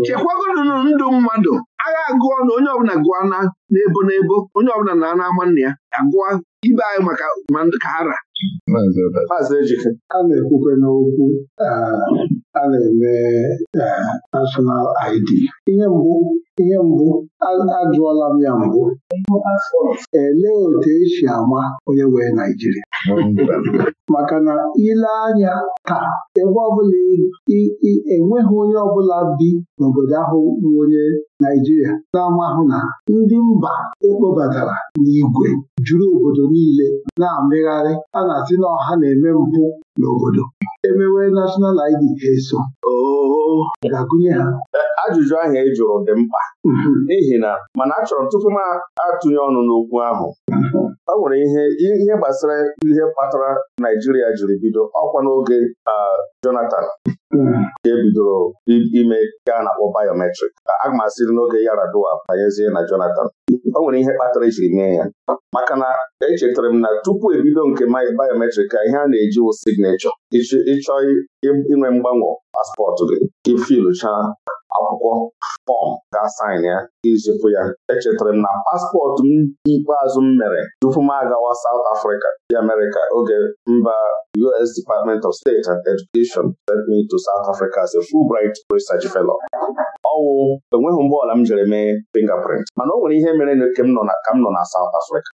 chekwagodonu ndụ mmadụ agha agụọ na onye ọbụla gụọ na n'ebo n'ebo onye ọbụla na ana ama nna ya agụọ ibe anyị maka mandụ ka ara Maazị Ejike a na-ekwukwe n'okwu eh, a na-eme eh, national ID ihe mbụ ihe mbụ ajụọla m ya mbụ elee otu esi ama onye wee Naijiria maka na ile anya taa ebe ọbụla enweghị onye ọbụla bi n'obodo ahụ bụ onye Naijiria na-amahụ na ndị mba ekpobatara n'ìgwè juru obodo niile na-amịgharị a na-asị na ọha na-eme mpụ n'obodo emewe nashọnal ID ha eso ga-agụnye ha ajụjụ ahụ e jụrụ dị mkpa mhm. n'ihi na mana achọrọ m tupu m atụnye ọnụ n'okwu ahụ ọ mhm. nwere ihe ihe gbasara ihe kpatara Naijiria jiri bido ọkwa n'oge Jonathan mhm. nke bidoro ime ka a na-akpọ biometric aga m asịrị n'oge Yaradua banyezie na Jonathan ọ nwere ihe kpatara ejiri mee ya maka na echetara m na tupu ebido nke biometric ka ihe a na-eji wụ signechọ ịchọ inwe mgbanwe paspọtụ gị ifilụcha akwụkwọ fọm ga-asaịn ya izipụ ya echetara m na paspọtụ m ikpeazụ m mere tupu m agawa South Africa dị America oge mba US Department of State and Education sent me to South Africa as a Fulbright Research Fellow ọwụ enweghị mgbe ọla m jere mee fingerprint mana o nwere ihe mere na ka m nọ na South Africa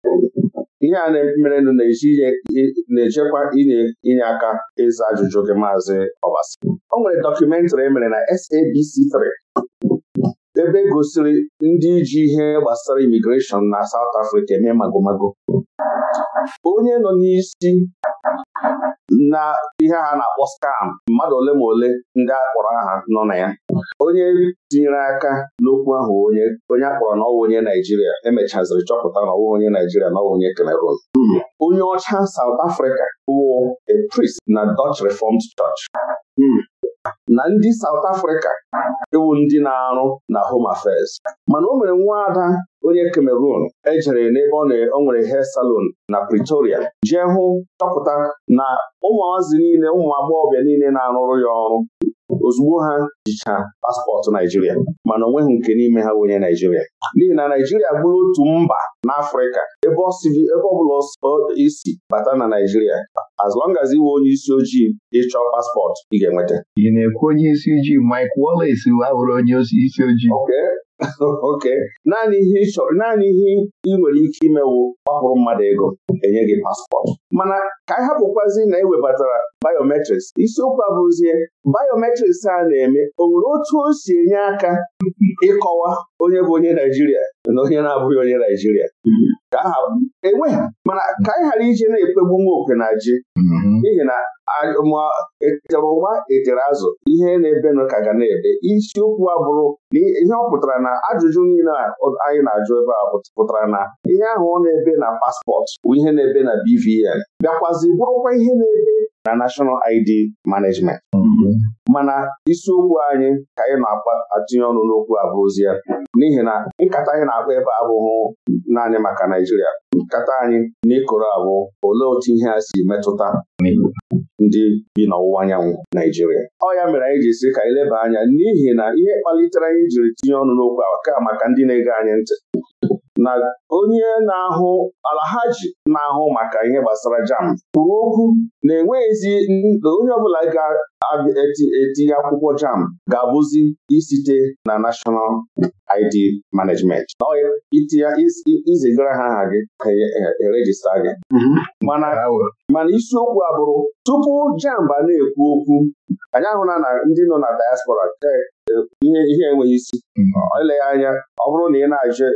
ihe a na-mere na-ejekwa inye aka ịza ajụjụ gị maazị Obasi o nwere dọkụmentrị emere na SABC3 gosiri ebe gosiri ndị ji ihe gbasara imigreshọn na South Africa eme magomago onye nọ n'isi na ihe a na-akpọ skam mmadụ ole ma ole ndị akpọrọ aha nọ na ya onye tinyere aka n'okwu ahụ onye onye akpọrọ n'ọwa onye Naijiria emechaziri chọpụta n'ọwa onye Naijiria na ọwụ onye Cameroon onye ọcha Saụt Africa wụ a prist na Dutch Reformed Church na ndị South Africa ewu ndị na-arụ na Home Affairs mana o mere nwaada onye Cameroon ejere n'ebe ọ nwere hair salon na Pretoria jee hụ chọpụta na ụmụazị niile ụmụ agbọghọbịa niile na-arụrụ ya ọrụ ozugbo ha jicha paspọtụ Naijiria mana onweghị nke n'ime ha wenye Naijiria n'ihi na Naijiria bụrụ otu mba n'Afrịka ebe ọ bụla isi bata na Naijiria as long as iwe onye isi ojii ịchọ paspọtụ ị ga-enweta ị na-ekwu onye isi ojii Mike Wallace abụrụ onye isi ojii ok, naanị ihe ị nwere ike imewu ọhụrụ mmadụ ego enye gị paspọtụ mana ka anyị hapụkwazi na ewebatara biometrics isiokwu abụzie biometrics a na-eme o nwere otu o si enye aka ịkọwa onye bụ onye Naijiria na onye na-abụghị onye Naijiria ka aha enweghị mana ka anyị ghara ije na-ekpegbu nwa okwe na ji mhm. n'ihi na ma etere ụgba etere azụ ihe na-ebenụ ka ga na-ebe isiokwu abụrụ na ihe ọ pụtara na ajụjụ niile anyị na-ajụ ebe a pụtara na ihe ahụ ọ na-ebe na paspọtụ bụ ihe na-ebe na BVN bịakwazi bụrụkwa ihe na-ebe na nashọnal ID Management mhm. mana isiokwu anyị ka anyị na-atụnye ọnụ n'okwu ya. n'ihi na nkata anyị na-akpa ebe abụghị naanị maka Naijiria nkata anyị ịkụrụ abụ olee otu ihe a si metụta ndị bi n'ọwụwa anyanwụ Naijiria ọ ya mere anyị ji sị ka anyị leba anya n'ihi na ihe kpalitere anyị jiri tinye ọnụ n'okwu a ka maka ndị na-ege anyị ntị na onye na-ahụ alahaji na-ahụ maka ihe gbasara jam kwuru okwu na enweghịzi onye ọbụla ga-etinye akwụkwọ jam ga-abụzi isite na National ID Management izigara ha aha gị ka erejista e, e gị mhm. mana isiokwu abụrụ tupu jam ba na-ekwu okwu anyị ahụla na ndị nọ na diaspora ihe ihe enweghị isi eleghị hmm. anya ọ bụrụ na ị na-ajụ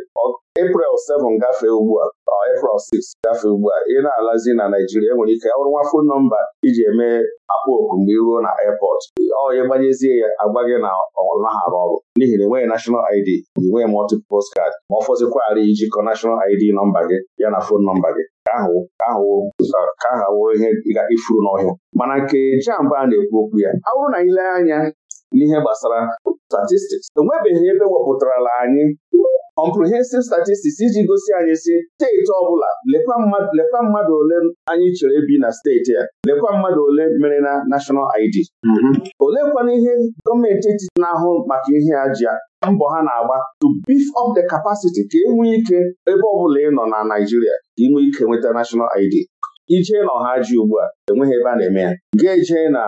April 7 gafee ugbu a April 6 gafee ugbu a ị na-alazi na Naijiria enwere ike ọrụ nwa fon nọmba iji eme akpa oku mgbe iruo na airport ya gbanyezie ya agwa gị na ọ ọrụ n'ihi na enweghị nashọnal ID nweghị multiple postcard ma ọ fọzikwara ijikọ nashọnal ID nọmba gị ya na fon nọmba gị ka ahụ ihe ịga ifuru n'ọhịa mana nke jamba a na-ekwu okwu ya ọ bụrụ na ile anya n'ihe gbasara statistics enwebeghị ebe wepụtarala anyị comprehensive statistics iji gosi anyị si steeti ọbụla lekwa mmadụ ole anyị chere bi na steeti ya, lekwa mmadụ ole mere na national ID mhm. olekwana ihe gọọmenti etiti na-ahụ maka ihe a ji mbọ ha na-agba to beef up the capacity ka enwe ike ebe ọbụla ị nọ na Naijiria ka ike nweta national ID iche na ọha ji ugbu a enweghị ebe a na-eme ya ga-eje na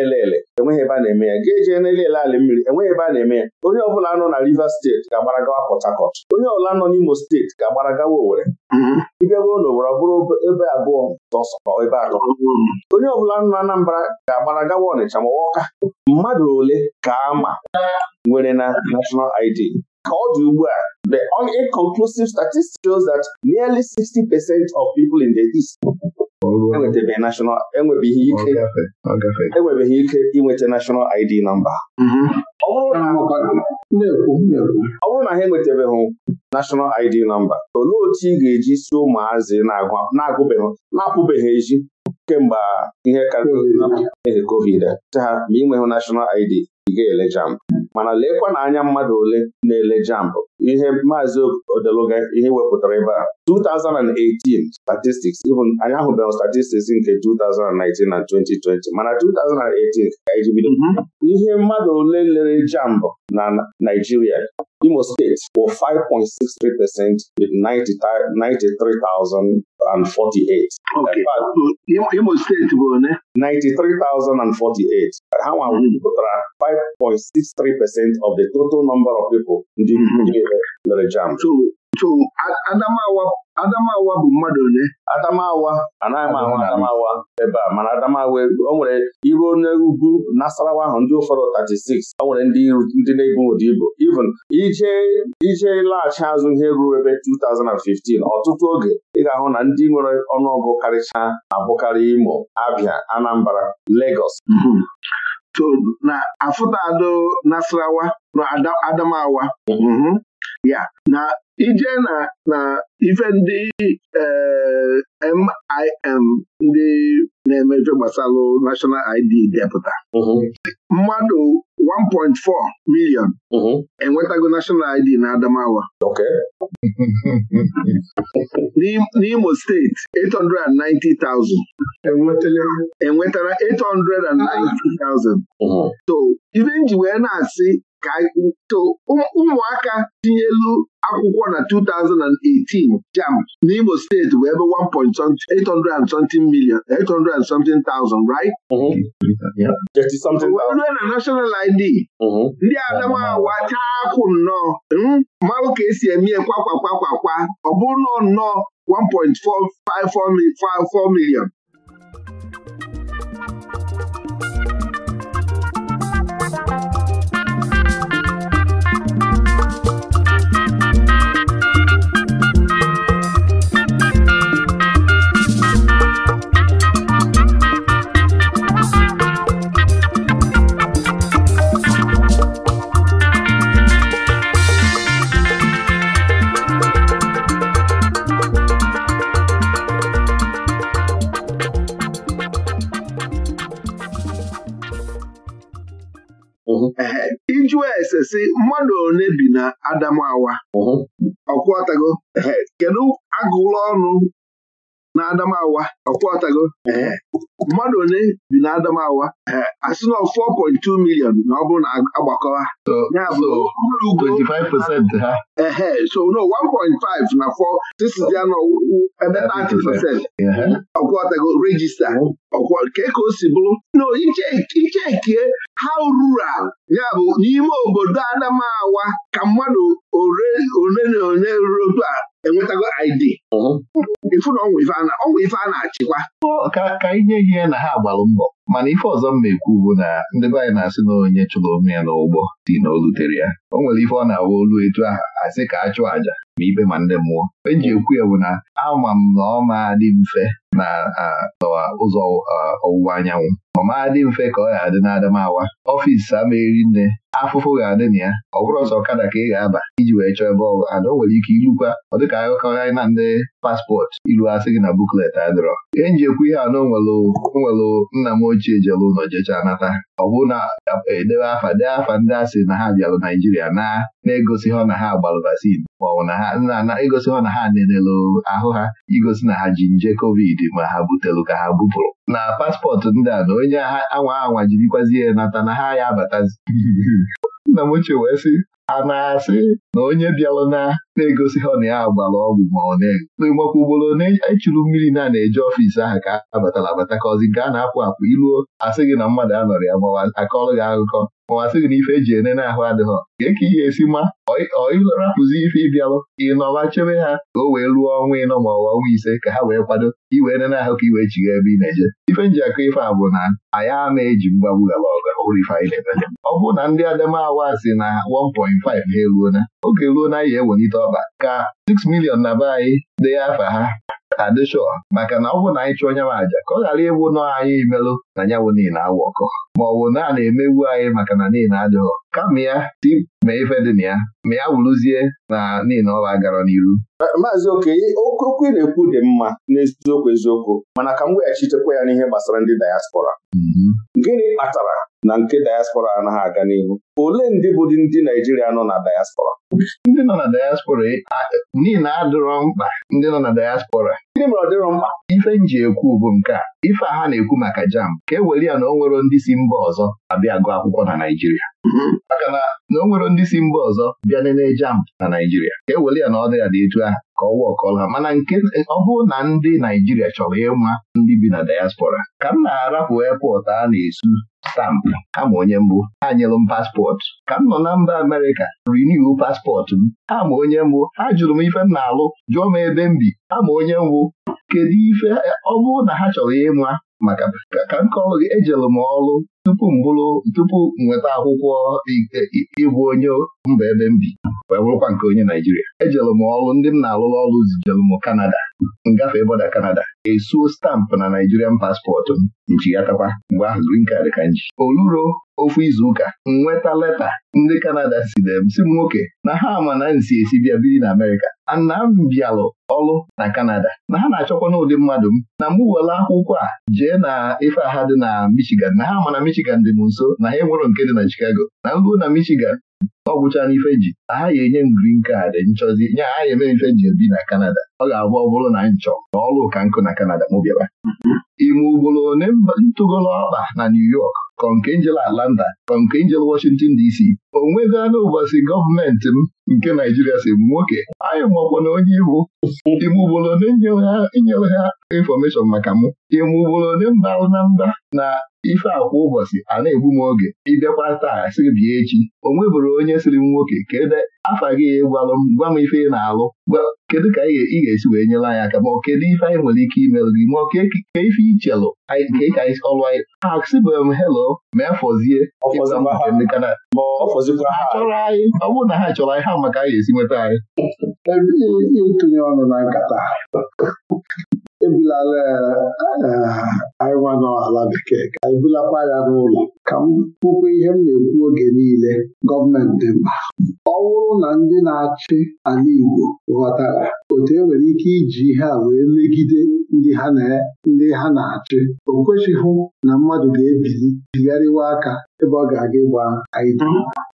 elele enweghị ebe a na-eme ya ga-eje na ala mmiri enweghị ebe a na-eme ya onye ọbụla nọ na Rivers steeti ga-agbara gawa Port Harcourt onye ọbụla nọ n'Imo steeti ga-agbara gawa Owerri mm-hmm. ịbịago n'obodo ọ bụrụ ebe abụọ sọsọ ebe atọ mm-hmm. onye ọbụla nọ na Anambra ga-agbara gawa Ọnịcha ma Ọka mmadụ ole ka ama nwere na national ID ka ọ dị ugbu a The inconclusive statistics shows that nearly 60 percent of people in the East enwebeghị e ike enwebeghị e ike inweta national ID namba mhm. ọ bụrụ na ha enwetebeghị National ID nọmba olee otu ị ga-eji si ụmụazị na-agụbeghị na-apụbeghị eji kemgbe ihe karịrị covid te ha ma ị nweghị National ID ị ga-ele jamb mana leekwana anya mmadụ ole na-ele jamb ihe maazị odeluga ihe wepụtara ebe a 2018 statistics anyị ahụbeghị statistics nke 2019 na 2020 mana 2018 ka anyị mhm. ihe mmadụ ole lere jamb na Naijiria Imo steeti bụ 5.63 percent with 93,048 Imo steeti bụ one 93,048 ha nwa wepụtara 5.63 percent of the total number of people ndị lere jam Adamawa Adamawa bụ mmadụ ole Adamawa anaghị m ahụ Adamawa ebe a mana Adamawa o nwere iru ugwu Nasarawa ahụ ndị ụfọdụ 36 o nwere ndị na-ebu ụdị ibu even ije ije laghachi azụ ihe ruo ebe 2015 ọtụtụ oge ị ga-ahụ na ndị nwere ọnụọgụ karịcha abụkarị Imo Abia Anambra legos mm-hmm. na Ado Nasarawa Adamawa mhm. ya na ije na ife ndị MIM eh, ndị na-emefe gbasalụ National ID depụta mhm. mmadụ 1.4 million mhm. enwetago National ID na Adamawa n'Imo steeti 890,000 enwetara 890,000 so ife nji wee na-asị ka ụmụaka tinyelu akwụkwọ na 2018 jam n'Imo steeti bụ ebe 1.8 million 800 something thousand right? rue mm-hmm. na national ID mm-hmm. ndị adamawa chaa akwụ nnọọ mmanwụ ka esi eme kwakwa kwakwa ọ bụrụ nọọ nnọọ 1.454 million jụọ ese si mmadụ one bi na Adamawa ọkwọtago kedu agụụlọ ọnụ na Adamawa ọtago. Eh, mmadụ one bi na Adamawa eh, sị na 4.2 million na ọ bụrụ na agbakọwa ya bụ ha. so no 1.5 na 4 tisidi ya ebe 30 percent ọtago regista ke ka o si bụrụ na ha how rural ya bụ n'ime obodo Adamawa ka mmadụ ole na ole ruru a enwetago ID ifu na ọnwụ ife a na-achịkwa ka inye ihe na ha agbalụ mbọ mana ife ọzọ m na-ekwu bụ na ndị be anyị na-asị na onye chụrụ onwe ya n'ụgbọ si na olutere ya o nwere ife ọ na-awa olu etu aha asị ka a chụọ àjà ma ikpe ma ndị mmụọ eji ekwu ya bụ na ama m na ọ ma dị mfe na ụzọ ọwụwa anyanwụ ọ ma dị mfe ka ọ ga-adị n'Adamawa ọfisi nne. afụfụ ga-adị na ya ọ bụrụ ọzọ ọkada ka ị ga-aba iji wee chọọ ebe ọgụ ada o nwere ike ilukwa ọ dịka akụkọ anyị na ndị paspọtụ ilu asị gị na buklet adịrọ ihe nji ekwu ihe a na onwelụ nna m ochie jelu ụlọ jecha nata ọ bụ na edebe afa dee afa ndị asị na ha bịalụ Naijiria na na-egosi ha na ha gbalụ vaccin maọbụ na ha egosi ha na ha nenelu ahụ ha igosi na ha ji nje kovid ma ha butelu ka ha bupụrụ na paspọtụ ndị a na onye anwa anwa jirikwazi ya nata na ha ya abatazi nna m ochie wee sị a na-asị na onye bịara na na-egosi ha na ya gbara ọgwụ ma ọ na-ego ugboro na echuru mmiri na na eje ọfiisi ahụ ka abatara abata ka ọzi gaa na-apụ apụ iruo asị gị na mmadụ anọrọ ya mawa akọrọ gị akụkọ mawa gị na ife eji ene ahụ adịghọ gee ka ihe esi ma ọịrapụzi ife ịbịalụ ịnọwa chebe ha ka o wee ruo ọnwa ịnọ ma ọwa ọnwa ise ka ha wee kwado iwe ene ahụ ka i wee chigha ebe ị na-eje ife nji akọ ife a bụ na anyị a na-eji mgbagbu gara ọga ọ bụrụ na ndị adamawa si na 1 na ha eruona oge ruo na anyị ewelite ọba ka 6 milion na be anyị dee afa ha adịshọ maka na ọ bụ na anyị chụọ onye m aja ka ọ ghara ịwụ nọ anyị imelụ na ya wụ niile awụ ọkọ ma ọ bụ na a na anyị maka na niile adịghọ kama ya si ma ife dị na ya ma ya wụrụzie na niile ọba gara n'iru Eh, maazị okenye okwu na-ekwu dị mma n'eziokwu eziokwu mana ka m weghachitekwa ya n'ihe gbasara ndị dayaspora mm-hmm. gịnị kpatara na nke dayaspora anaghị aga n'ihu ole ndị bụ ndị Naijiria nọ na dayaspora ndị nọ na dayaspora niile adịrọ mkpa ndị nọ na dayaspora gịnị mere ọ dịrọ mkpa ife nji ekwu bụ nke a ife agha ha na-ekwu maka jam ka e were ya na o nwero ndị si mba ọzọ abịa gụọ akwụkwọ na Naịjirịa maka na o nwero ndị si mba ọzọ bịa nene jam na Naịjirịa ka e were ya na ọ dịghị ya dị etu ahụ ka ọwa ọkọla mana nke ọ bụrụ na ndị Naijiria chọrọ ịma ndị bi na diaspora ka m na-arapụ epọtụ a na-esu stampụ kama onye mbụ ha nyelụ m paspọtụ ka m nọ na mba Amerịka riniwu paspọtụ m ama onye mbụ ha jụrụ m ife m na-alụ jụọ m ebe m bi ama onye mbụ kedu ife ọ bụrụ na ha chọrọ ịma maka ka m kọọlụ gị m ọrụ tupu m tupu nweta akwụkwọ ịbụ onye mba ebe m bi wee bụrụkwa nke onye Naijiria ejelụ m ọrụ ndị m na-alụrụ ọrụ zijelụ m Kanada ngafe bọda Kanada esuo stampụ na Naijirian paspọtụ m nchighatakwa mgbe ahụ green card ka nji oluro ofu izuụka nweta leta ndị Kanada sidere si m nwoke na ha ama na nsi esi bịa biri na Amerịka ana m bịalụ ọrụ na Kanada na ha na-achọkwa n'ụdị mmadụ m na mgbe were akwụkwọ a jee na ife aha dị na Michigan na ha ama na Michigan dị m nso na ha enwero nke dị na Chicago na mbụ na Michigan ọ gwụchana n'ife ji na ha ga-enye m green card nchọzi nye ha ya eme ife ji ebi na Kanada ọ ga-abụ ọ bụrụ na nchọ na ọlụ ụka nkụ na Kanada m bịara ime ugboro ntụgolo ọkpa na New York konkenjel nke konkenjel Washington DC o anụ ụbọchị gọọmenti m nke Naijiria si m nwoke anyị makwa na onye iwu ime ugboro ole nyere ha infọmeshọn maka mụ ime ugboro mbalụ na mba na ife a kwa ụbọchị a na-egbu m oge ịbịakwa taa sị bịa echi o nwebụrụ onye sịrị m nwoke kedu afa gị e gwalụ m gwa m ife ị na-alụ kedu ka ị ga-esi wee nyere anyị aka ma ọ kedu ife anyị nwere ike imelụ gị ma ọ ka ife ichelụ anyị ka ọlụ anyị asịbụrụ m helo ma afọzie ndị kana chọrọ anyị ọ bụrụ na ha chọrọ anyị ha maka a ga esi nweta anyị ebulala eh, anyịnwa n'ala bekee ka anyị bulakwa ya n'ụlọ ka m kwukwa ihe m na-ekwu oge niile gọọmenti mba ọ bụrụ na ndị na-achị ala Igbo ghọtara otu enwere ike iji ihe a wee megide ndị ha na-achị o kwesịghị na mmadụ ga-ebili bigharịwa aka ebe ọ ga-aga ịgba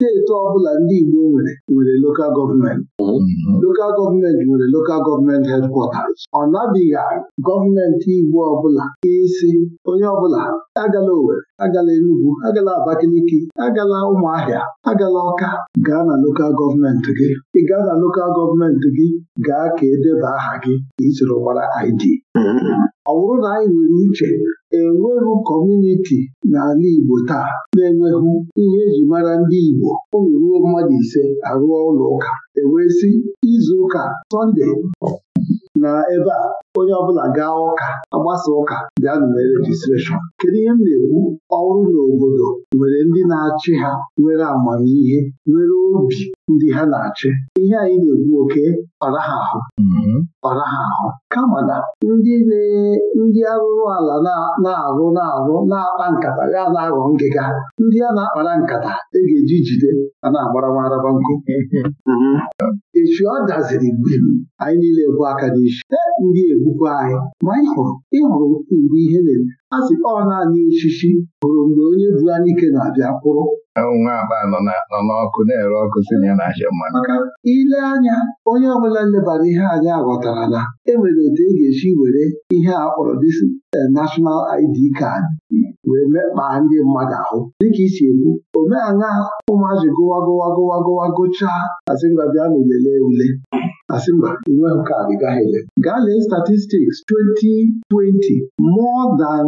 Na-eto ọbụla ndị Igbo nwere nwere lokal gọọmenti mhm. lokal gọọmenti nwere lokal gọọmenti hedkwọtas ọ nabighị gọọmenti Igbo ọbụla isi onye ọbụla agala owere agala Enugu agala Abakaliki agala Ụmụahịa agala Ọka gaa na lokal gọọmenti gị ị gaa na lokal gọọmenti gị gaa ka edeba aha gị ka ị gbara ID mhm. ọ bụrụ na anyị nwere uche enweghị kọmuniti n'ala Igbo taa na-enweghị ihe eji mara ndị Igbo ụlọ ruo mmadụ ise arụọ ụlọ ụka ewee sị izu ụka Sọnde na ebe a onye ọbụla gaa ụka agbasa ụka nụ na rejistreshọn kedu ihe m na-ekwu ọrụ n'obodo nwere ndị na-achị ha nwere amamihe nwere obi ndị ha na-achị ihe anyị na-ekwu oke ọraha ahụ ọraha mm-hmm. ahụ kama na ndị ndị arụrụ ala na-arụ na-arụ na-akpa nkata ya na-aghọ ngịga ndị a na-akpara nkata e ga-eji jide a na-agbarawaraba nkụ mm-hmm. echi ọ daziri mgbe anyị niile bụ aka n'isi ndị egwu na-egbukwa anyị ma ị hụrụ ịhụrụ mgbe ihe na-eme a sị ọ naanị osisi hụrụ mgbe onye bu anyị ike na-abịa kwụrụ nwa akpa nọ n'ọkụ na-ere ọkụ si na ya na-achọ mmanụ maka ile anya onye ọbụla nlebara ihe anyị aghọtara na enwere otu e ga-esi were ihe a kpọrọ disi eh, National ID card wee mekpaa ndị mmadụ ahụ dịka isi ekwu omeala ụmụazị gụwa gụwa gụwa gụwa gụchaa asị ngwa bịa na ulele ule asị mba inwe nke a ị gaghị gaa lee statistics 2020 more than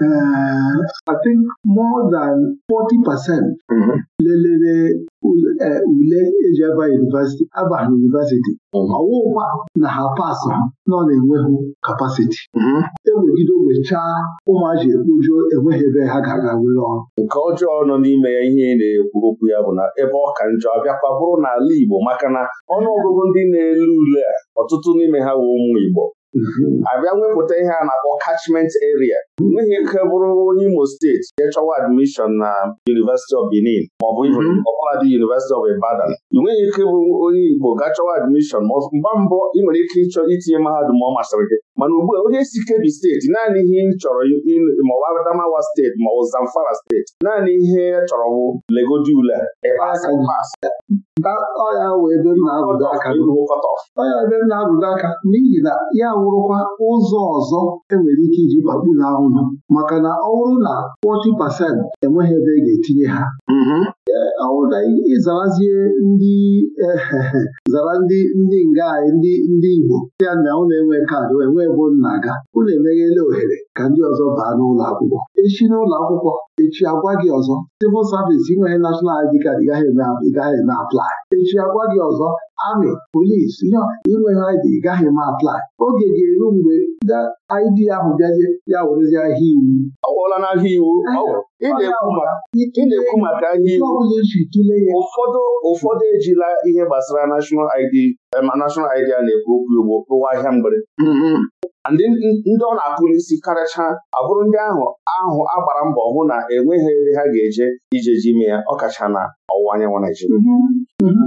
Uh, I think more than 40 percent mm-hmm. lelere uh, ule eji aba yunivesiti aba yunivesiti ọwụwa mm-hmm. na ha pas ha nọ na-enweghị kapasiti mm-hmm. ewegide wechaa ụmụaji ekpoju enweghị ebe ha gara were ọrụ nke ọjọọ nọ n'ime ya ihe na-ekwu okwu ya bụ na ebe ọ ka njọ abịakwa bụrụ n'ala Igbo maka na ọnụ ndị na-ele ule a ọtụtụ n'ime ha bụ ụmụ Igbo abịa nwepụta ihe a na-akpọ catchment area nweghị ike bụrụ onye Imo steeti jee chọwa admishọn na University of Benin maọbụ mhm. ọbụladị University of Ibadan ị nweghị ike bụ onye Igbo ga chọwa admishọn mgba mbụ ị nwere ike ịchọ itinye mahadum ọ masịrị gị mana ugbu a onye si Kebbi steeti naanị ihe chọrọ ma ọ bụ Adamawa steeti ma ọ bụ Zamfara steeti naanị ihe ya chọrọ bụ legodi ule ọya ebe m na-abụdo aka n'ihi na ya wụrụkwa ụzọ ọzọ enwere ike iji gbagburu ahụhụ maka na ọ bụrụ na 40 pasent enweghị ebe e ga-etinye ha mm-hmm. e, ọwụda ịzarazie ndị ehehe zara ndị ndị nga ndị ndị Igbo ya na ụlọ enwe kaadị wee bụ nna ga unu emeghela ohere ka ndị ọzọ baa n'ụlọ akwụkwọ echi n'ụlọ akwụkwọ echi agwa gị ọzọ civil service inweghị national ID card gaghị eme aplai echi agwa gị ọzọ amị polisi inweghị ID gaghị eme aplai oge ga-eru mgbe ndị ID ahụ bịazie ya werezie ahịa iwu ọ gwọla n'ahịa iwu ị na-ekwu maka ahịa iwu e ụfọdụ ụfọdụ ejila ihe gbasara national ID eh, a na-ekwu okwu ugbo ụwa ahịa mgbere mm-hmm. ndị ndị ọ na akpụ n'isi karịcha abụrụ ndị ahụ ahụ agbara mbọ hụ na enweghị ebe ha ga-eje ije ji ime ya ọkachana. ọwụwa anyanwụ Naijiria mhm. mhm.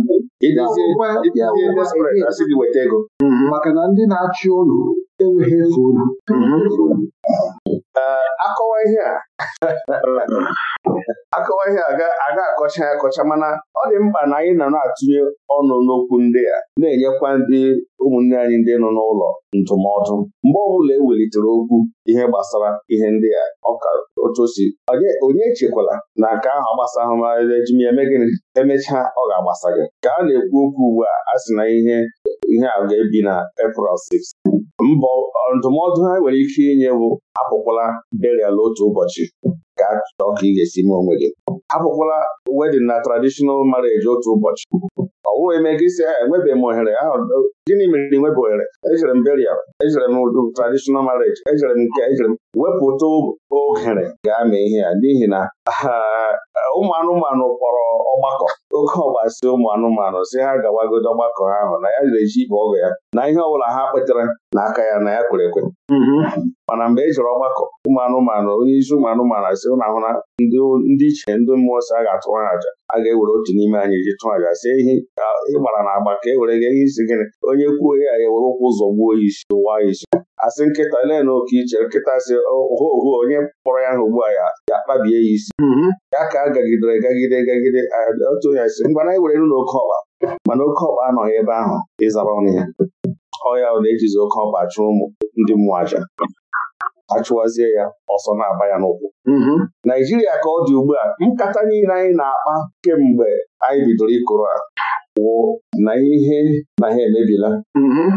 asị gị weta ego mhm. maka na ndị na-achị ụlọ enweghị efe ụlọ akọwa ihe a akọwa ihe a ga-akọcha ya akọcha mana ọ dị mkpa na anyị nọ na-atụnye ọnụ n'okwu ndị a na-enyekwa ndị ụmụnne anyị ndị nọ n'ụlọ ndụmọdụ mgbe ọbụla e welitere okwu ihe gbasara ihe ndị a ọka otu osi onye echekwala na nke ahụ gbasara ahụmahụ ejimeme gịnị emechaa ọ ga-agbasa gị ka a na-ekwu okwu ugbu a a sị na ihe ihe a ga-ebi na April 6 mbọ ndụmọdụ ha nwere ike inye bụ apụkwala burial otu ụbọchị ka chọọ ka ị ga-esi mee onwe gị apụkwala wedding na traditional marriage otu ụbọchị ọ bụghị eme gị isi enwebeghị m ohere gịnị mere na enwebeghị ohere ejere m burial ejere m traditional marriage ejere m nke ejere m wepụta ohere gaa mee ihe ya n'ihi na ụmụ anụmanụ kpọrọ ọgbakọ oke si ụmụ anụmanụ si ha gawagodo ọgbakọ ahụ na ya ga-eji ibe ọgụ ya na ihe ọbụla ha kpetara n'aka ya na ya kwere ekwe mm-hmm. mana mgbe e jere ọgbakọ ụmụ anụmanụ onye isi ụmụ anụmanụ asị ụnụ ahụ na ndị iche ndị mmụọ si a ga atụwara ha aja a ga-ewere otu n'ime anyị ji tụọ aja sie ihe ịgbara na agba ka e were gị ihe isi gịnị onye kwuo ya ya were ụkwụ ụzọ gbuo ya isi ụwa ya isi asị nkịta ole na oke iche nkịta si oho oho onye kpọrọ ya ahụ ugbu a ya akpabie ya isi mm-hmm. ya ka a gagidere gagide gagide otu onye si mgbe anyị were n'ụlọ na oke ọkpa mana oke ọkpa anọghị ebe ahụ ịzara ọnụ ya ọya ọ na-ejizi oke ọkpa ụmụ ndị mmụọ aja achụwazie ya ọsọ na-aba ya n'ụkwụ mm-hmm. Naijiria ka ọ dị ugbu a nkata niile anyị na-akpa kemgbe anyị bidoro ịkụrụ a wụ na ihe na ha emebila mm-hmm.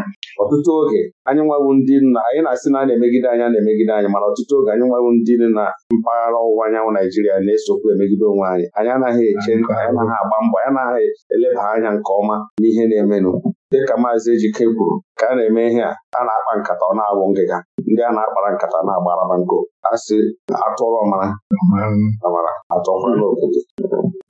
ọtụtụ oge anyị nwawu ndị nna anyị na-asị na a na-emegide anya na-emegide anyị mana ọtụtụ oge anyị nwawu ndị na mpaghara ọwụwa anyanwụ Naijiria na-esokwu emegide onwe anyị anyị anaghị eche mm-hmm. anyị anaghị agba mbọ anyị anaghị eleba anya nke ọma n'ihe na-emenụ dịka maazị Ejike kwuru ka a na-eme ihe a a na-akpa nkata ọ na agwụ ngịga ndị a na-akpara nkata na-agbaraba agbara nkụ asị atụrụ ọmara amara atụọkwala obodo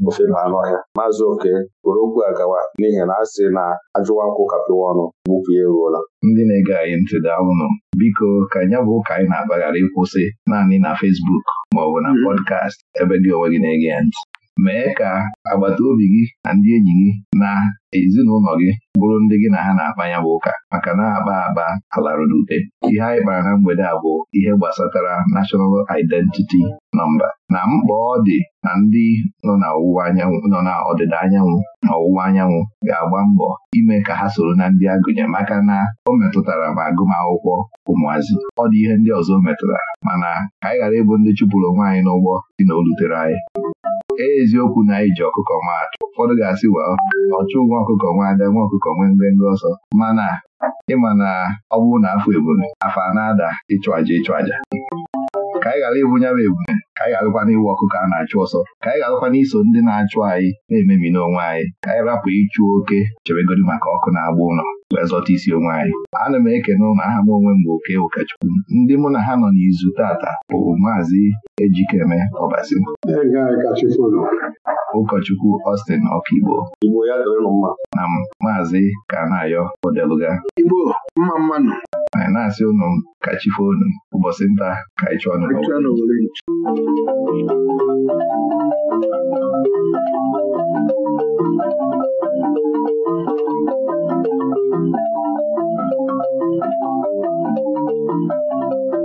ofe na anụ ọhịa maazị oke were okwu a gawa n'ihi na a sị na ajụwa nkwụ kapịwa ọnụ gbupụ ya eruola ndị na-ege anyị ntị daalụnụ biko ka ya bụ ụka anyị na akpaghara ịkwụsị naanị na ọ maọbụ na mm-hmm. pọdkast ebe dị onwe gị na-ege ya ntị mee ka agbata obi gị na ndị enyi gị na ezinụlọ gị bụrụ ndị gị na ha na-akpa bụ ụka maka na-akpa akpa alarụ n'ute ihe anyị kpara na mgbede a bụ ihe gbasatara National Identity Number na mkpa ọ dị na ndị nọ na anyanwụ nọ na ọdịda anyanwụ na ọwụwa anyanwụ ga-agba mbọ ime ka ha soro na ndị agụnye maka na o metụtara ma agụmakwụkwọ ụmụazị ọ dị ihe ndị ọzọ metụtara mana ka anyị ghara ịbụ ndị chụpụrụ nwaanyị n'ụgbọ dị na o rutere anyị eziokwu na Iji ọkụkọ ọkụkọ atụ ụfọdụ ga-asị wa ọchụ nwa ọkụkọ nwa ada nwa ọkụkọ nwee ngwengwe ọsọ mana ịma na ọ bụrụ na afọ ebule afọ na-ada ịchụ aja ịchụ aja ka anyị ghara ịbụ nyawa ebube ka anyị ghara gwana iwu ọkụ ka a na-achụ ọsọ ka anyị garakwana iso ndị na-achụ anyị na-emebi n'onwe anyị ka anyị rapụ ịchụ oke chebegodi maka ọkụ na-agba ụlọ wee zọta isi onwe anyị ana m ekene ụlọ aha m onwe m oke ụkọchukwu ndị mụ na ha nọ n'izu tata bụ maazị Ejikeme Ọbasi ụkọchukwu Austin Ọkigbo na maazị Kanayo Odeluga Igbo mma mmanụ anyị na-asị ụnụ ka chife unu ụbọchị nta ka anyị chụọ nụ